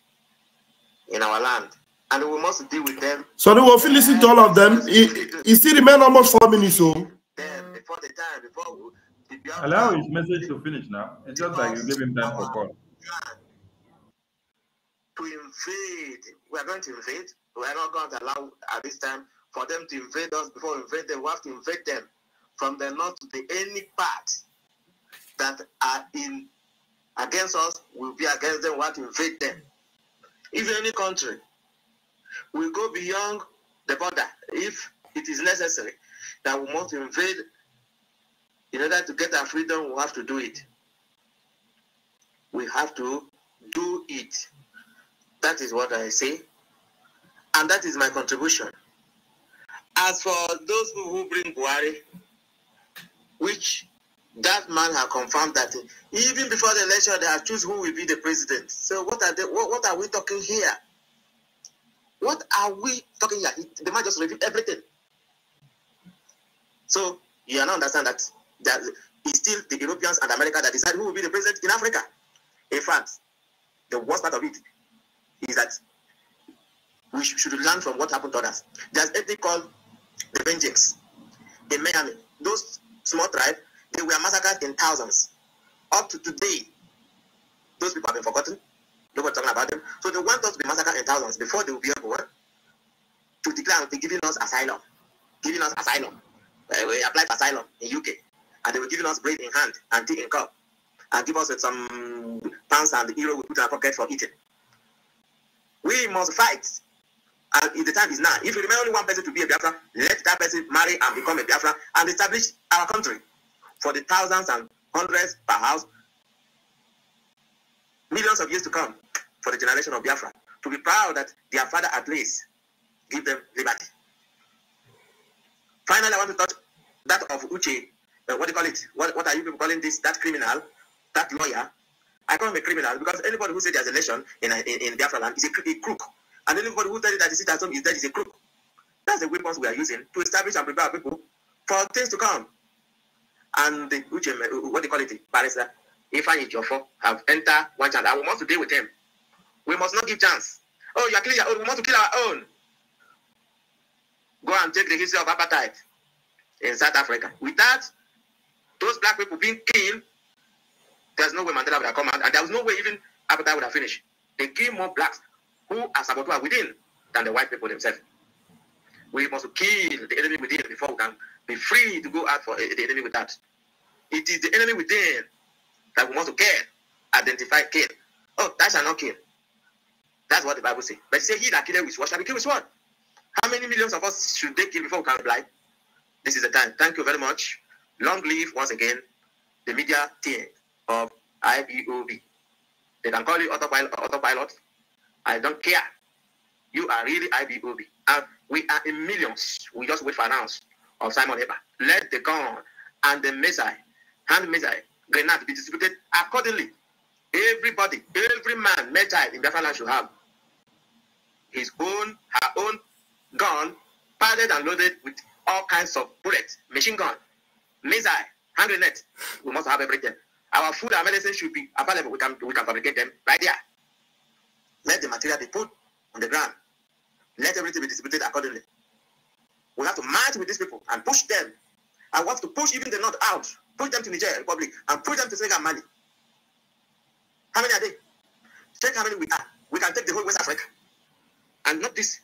in our land, and we must deal with them. So they will listen to all of them. It, he still remains almost four minutes. So. Oh. Before the time, before we, Allow his message to finish now. It's just like you gave him time for call. To invade, we are going to invade. We are not going to allow at this time for them to invade us. Before we invade them, we have to invade them from the north to the any part that are in against us will be against them what invade them. If any country will go beyond the border, if it is necessary, that we must invade in order to get our freedom, we have to do it. We have to do it. That is what I say. And that is my contribution. As for those who bring Buhari, which that man has confirmed that even before the election they have choose who will be the president. So what are they, what, what are we talking here? What are we talking here? The man just revealed everything. So you now understand that that it's still the Europeans and America that decide who will be the president in Africa. In fact, the worst part of it is that we should learn from what happened to others. There's a thing called the vengeance in Miami. Those small tribes They were massacred in thousands. Up to today, those people have been forgotten. Nobody talking about them. So they want us to be massacred in thousands before they will be able eh, to declare and be giving us asylum. Giving us asylum. Uh, we applied for asylum in UK. And they were giving us bread in hand and tea in cup. And give us some pounds and euro we put in our pocket for eating. We must fight. And if the time is now, if you remain only one person to be a Biafra, let that person marry and become a Biafra and establish our country. for the thousands and hundreds, house, millions of years to come for the generation of Biafra to be proud that their father at least give them liberty. Finally, I want to touch that of Uche. Uh, what do you call it? What, what are you people calling this? That criminal, that lawyer. I call him a criminal because anybody who says there's election in, in, in Biafra land is a, a crook. And anybody who tells you that the citizen is dead is a crook. That's the weapons we are using to establish and prepare people for things to come. and the Ujem, what they call it, barrister Ifeanyi Jofo have entered one chance. And want to deal with them. We must not give chance. Oh, you are killing your own. We want to kill our own. Go and take the history of apartheid in South Africa. With that, those black people being killed, there's no way Mandela would have come out, and there was no way even apartheid would have finished. They killed more blacks who are saboteur within than the white people themselves. We must kill the enemy within before we can be free to go out for eh, the enemy without. It is the enemy within that we must kill, identify, kill. Oh, that shall not kill. That's what the Bible says. But say he that killed with what shall be killed with what? How many millions of us should they kill before we can reply? This is the time. Thank you very much. Long live once again the media team of IBOB. They can call you autopilot. autopilot. I don't care. You are really IBOB. And We are in millions. We just wait for an ounce of Simon Eber. Let the gun and the missile, hand missile, grenade be distributed accordingly. Everybody, every man, metal in Biafra land should have his own, her own gun, padded and loaded with all kinds of bullets, machine gun, missile, hand grenade. We must have everything. Our food and medicine should be available. We can, we can fabricate them right there. Let the material be put on the ground. Let everything be distributed accordingly. We have to march with these people and push them. I want to push even the North out, push them to Niger Republic, and push them to Senegal Mali. How many are they? Check how many we are. We can take the whole West Africa. And not this.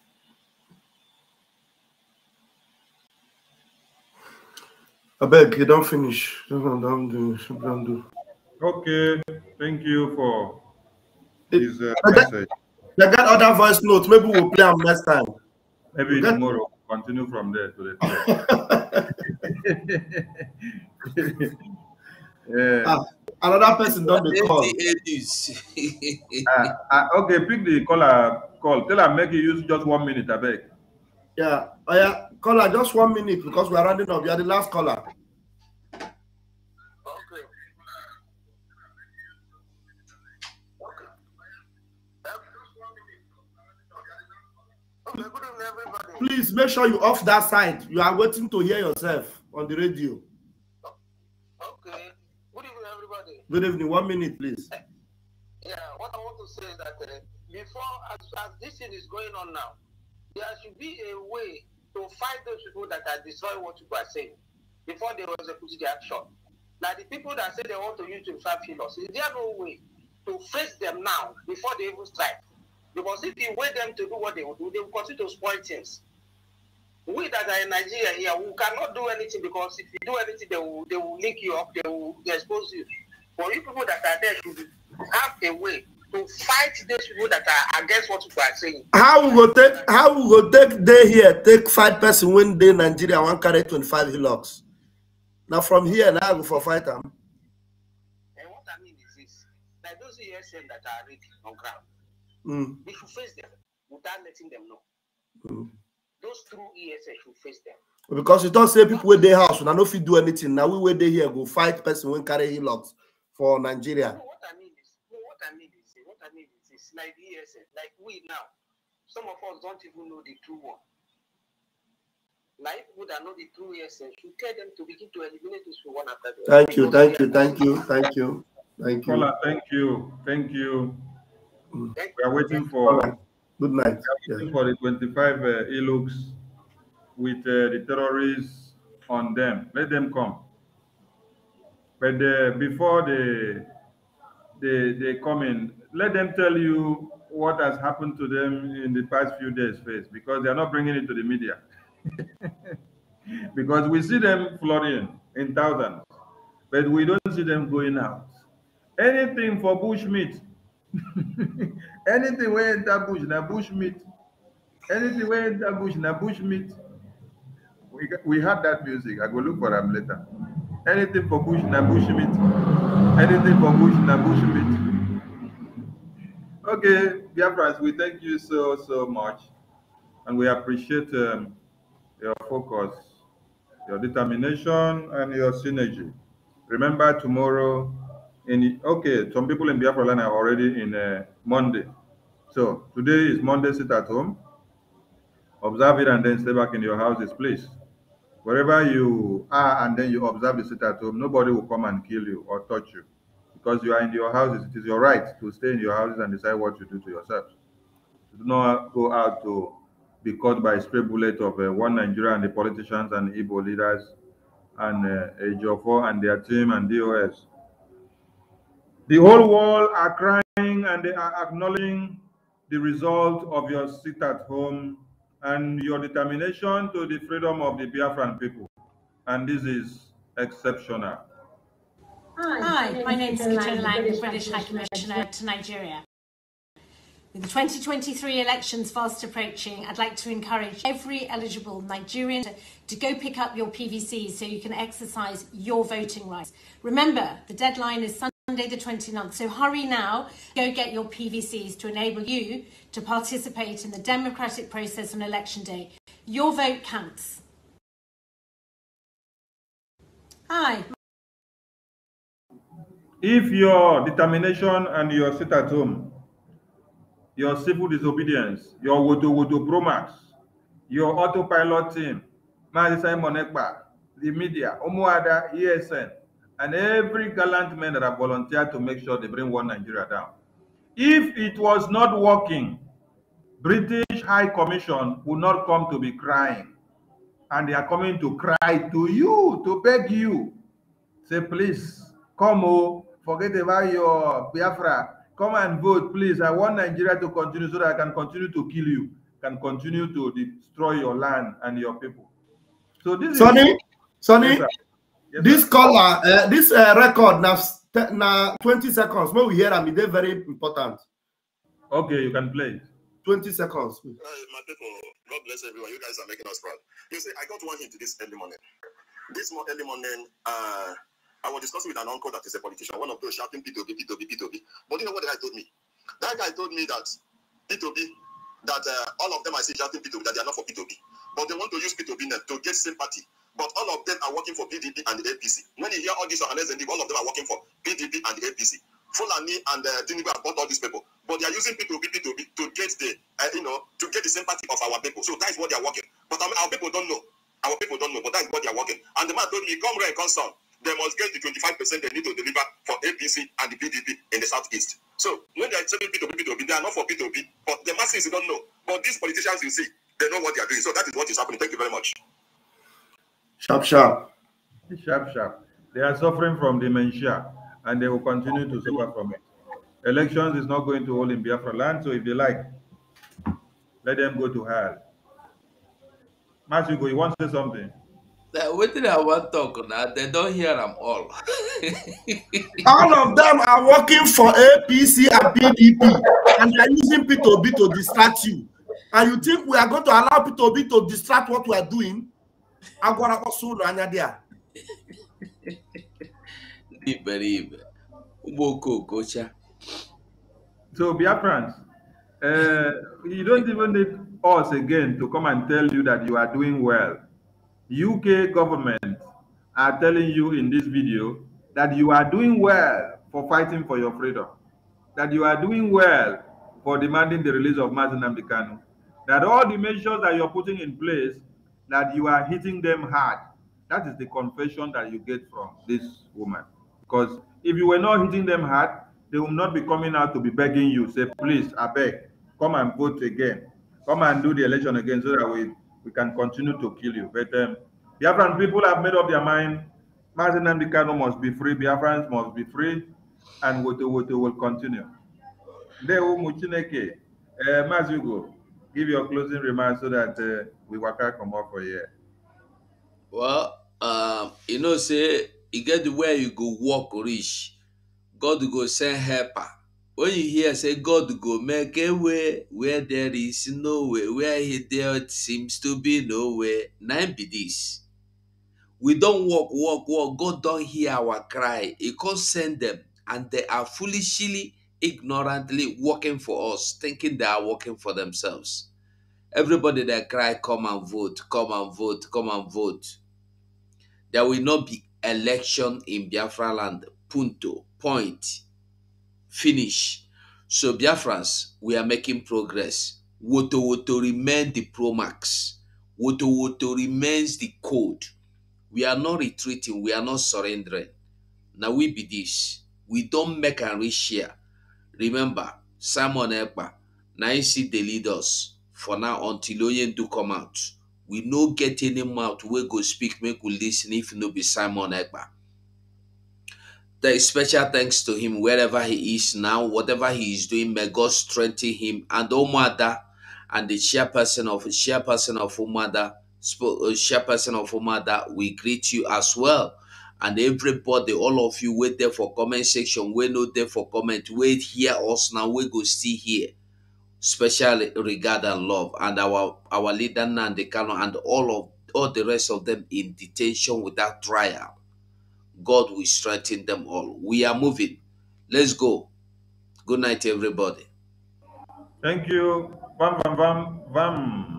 I beg you don't finish. Don't, don't do. not finish do not do not do not do. Okay. Thank you for this uh, message. They got other voice notes. Maybe we'll play them next time. Maybe we'll tomorrow. Get... Continue from there to the yeah. Ah, another person done the call. uh, ah, uh, ah, ah, okay, pick the caller call. Tell her make you use just one minute, I beg. Yeah. Oh, yeah. Caller, just one minute because we are running up. You are the last caller. Please make sure you off that side. You are waiting to hear yourself on the radio. Okay. Good evening, everybody. Good evening. One minute, please. Eh, yeah, what I want to say is that uh, before, as, as this thing is going on now, there should be a way to fight those people that are destroying what you are saying before they execute the action. Now, the people that say they want to use 25 pillars, is there no way to face them now before they even strike? Because if you wait them to do what they will do, they will continue to spoil things we that are in Nigeria here, we cannot do anything because if you do anything, they will they will link you up, they will expose you. But you people that are there should have a way to fight these people that are against what you are saying. How we go take how we go take day here, take five person when day Nigeria one carry twenty five hillocks. Now from here now I go for fight them. And what I mean is this that those ESN that are ready on ground, mm. we should face them without letting them know. Mm. those true ESS should face them. Because you don't say people with their house, and I know if you do anything. Now we wait they here, go fight person when carry logs for Nigeria. No, what I mean is, no, what I mean is, what I mean is, it's like ESS, like we now. Some of us don't even know the true one. Like people that know the true ESS, you tell them to begin to eliminate this one after the Thank you, thank you, thank you, thank you, thank you. Thank you, thank you. Thank you. We are waiting for. Good night. Yes. For the 25 uh, e-looks with uh, the terrorists on them. Let them come. But uh, before they, they, they come in, let them tell you what has happened to them in the past few days, face, because they are not bringing it to the media. because we see them flooding in thousands, but we don't see them going out. Anything for bushmeat Anything we enter bush, na bush meat. Anything we enter bush, na bush meat. We, we had that music. I go look for them later. Anything for bush, na bush meat. Anything for bush, na bush meat. Okay, dear friends, we thank you so, so much. And we appreciate um, your focus, your determination, and your synergy. Remember, tomorrow in okay some people in biafra land are already in uh, monday so today is monday sit at home observe it and then stay back in your houses please wherever you are and then you observe the sit at home nobody will come and kill you or touch you because you are in your houses it is your right to stay in your houses and decide what you do to yourselves do not go out to be caught by a spray bullet of uh, one Nigeria and the politicians and Igbo leaders and uh, and their team and DOS. The whole world are crying and they are acknowledging the result of your sit at home and your determination to the freedom of the Biafran people. And this is exceptional. Hi, my name is Katrina Lang, British, British High Commissioner to Nigeria. With the 2023 elections fast approaching, I'd like to encourage every eligible Nigerian to, to go pick up your PVC so you can exercise your voting rights. Remember, the deadline is Sunday. Monday the 29th. So hurry now, go get your PVCs to enable you to participate in the democratic process on election day. Your vote counts. Hi. If your determination and your sit at home, your civil disobedience, your wodo wodo bromax, your autopilot team, Mazi Simon Ekba, the media, Omoada, ESN, and every gallant man that have volunteered to make sure they bring one Nigeria down. If it was not working, British High Commission would not come to be crying. And they are coming to cry to you, to beg you. Say, please, come, oh, forget about your Biafra. Come and vote, please. I want Nigeria to continue so that I can continue to kill you, can continue to destroy your land and your people. So this Sonny, is... Sonny, yes, this color, uh, this uh, record now, now 20 seconds. When we hear them, they're e very important. Okay, you can play. 20 seconds. Uh, my people, God bless everyone. You guys are making us proud. You see, I got one hint this early morning. This more early morning, uh, I was discussing with an uncle that is a politician, one of those shouting P2B, P2B, P2B. But you know what the guy told me? That guy told me that P2B, that uh, all of them I see shouting P2B, that they are not for P2B. But they want to use P2B to get sympathy But all of them are working for PDP and the APC. When you hear all these journalists and all of them are working for PDP and the APC. Fulani and uh, Tinubu have bought all these people, but they are using P2P, P2P to get the, uh, you know, to get the sympathy of our people. So that is what they are working. But I um, mean, our people don't know. Our people don't know, but that is what they are working. And the man told me, come right, come consult. They must get the 25% they need to deliver for APC and the PDP in the southeast. So when they are selling P2P, P2P, they are not for P2P, but the masses don't know. But these politicians, you see, they know what they are doing. So that is what is happening. Thank you very much. Sharp, sharp. Sharp, sharp. They are suffering from dementia and they will continue to suffer from it. Elections is not going to hold in Biafra land, so if they like, let them go to hell. Matthew, you want to say something? Now, what did I want to talk now? They don't hear them all. all of them are working for APC and PDP, and they're using P2B to distract you. And you think we are going to allow P2B to distract what we are doing? agwara kpọsa ụlọ anya dị a ndị iberibe ụgbọ okooko cha so biafrans uh, you don't even need us again to come and tell you that you are doing well uk government are telling you in this video that you are doing well for fighting for your freedom that you are doing well for demanding the release of Martin Kanu, that all the measures that you're putting in place that you are hitting them hard. That is the confession that you get from this woman. Because if you were not hitting them hard, they will not be coming out to be begging you, say, please, I beg, come and vote again. Come and do the election again so that we, we can continue to kill you. But um, Biafran people have made up their mind. Martin and Bikano must be free. Biafrans must be free. And Woto Woto will continue. Deo will Muchineke. Uh, give your closing remarks so that uh, we waka comot for here. well um, you know say you e get where you go walk rich, god go send helper when you hear say god go make a way where there is no way where he there seems to be no way na be this we don't walk, walk, walk. god don't hear our cry he can't send them and they are foolishly ignorantly working for us, thinking they are working for themselves. Everybody that cry, come and vote, come and vote, come and vote. There will not be election in Biafra land. Punto. Point. Finish. So Biafrans, we are making progress. Woto Woto remains the Promax. Woto Woto remains the code. We are not retreating. We are not surrendering. Now we be this. We don't make and reach here. Remember, Simon Ekpa, see the leaders for now until Onye do come out. We no get any mouth we go speak, make we listen if no be Simon Ekpa. There is special thanks to him wherever he is now, whatever he is doing, may God strengthen him and Omada and the chairperson of chairperson of Umada, uh, chairperson of Umada, we greet you as well and everybody all of you wait there for comment section wey no there for comment wait hear us now we go still here special regard and love and our our leader Nandi Kano and all of all the rest of them in detention without trial god will strengthen them all we are moving let's go good night everybody thank you bam bam bam bam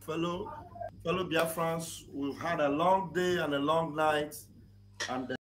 Follow. fellow Biafrans, we've had a long day and a long night, and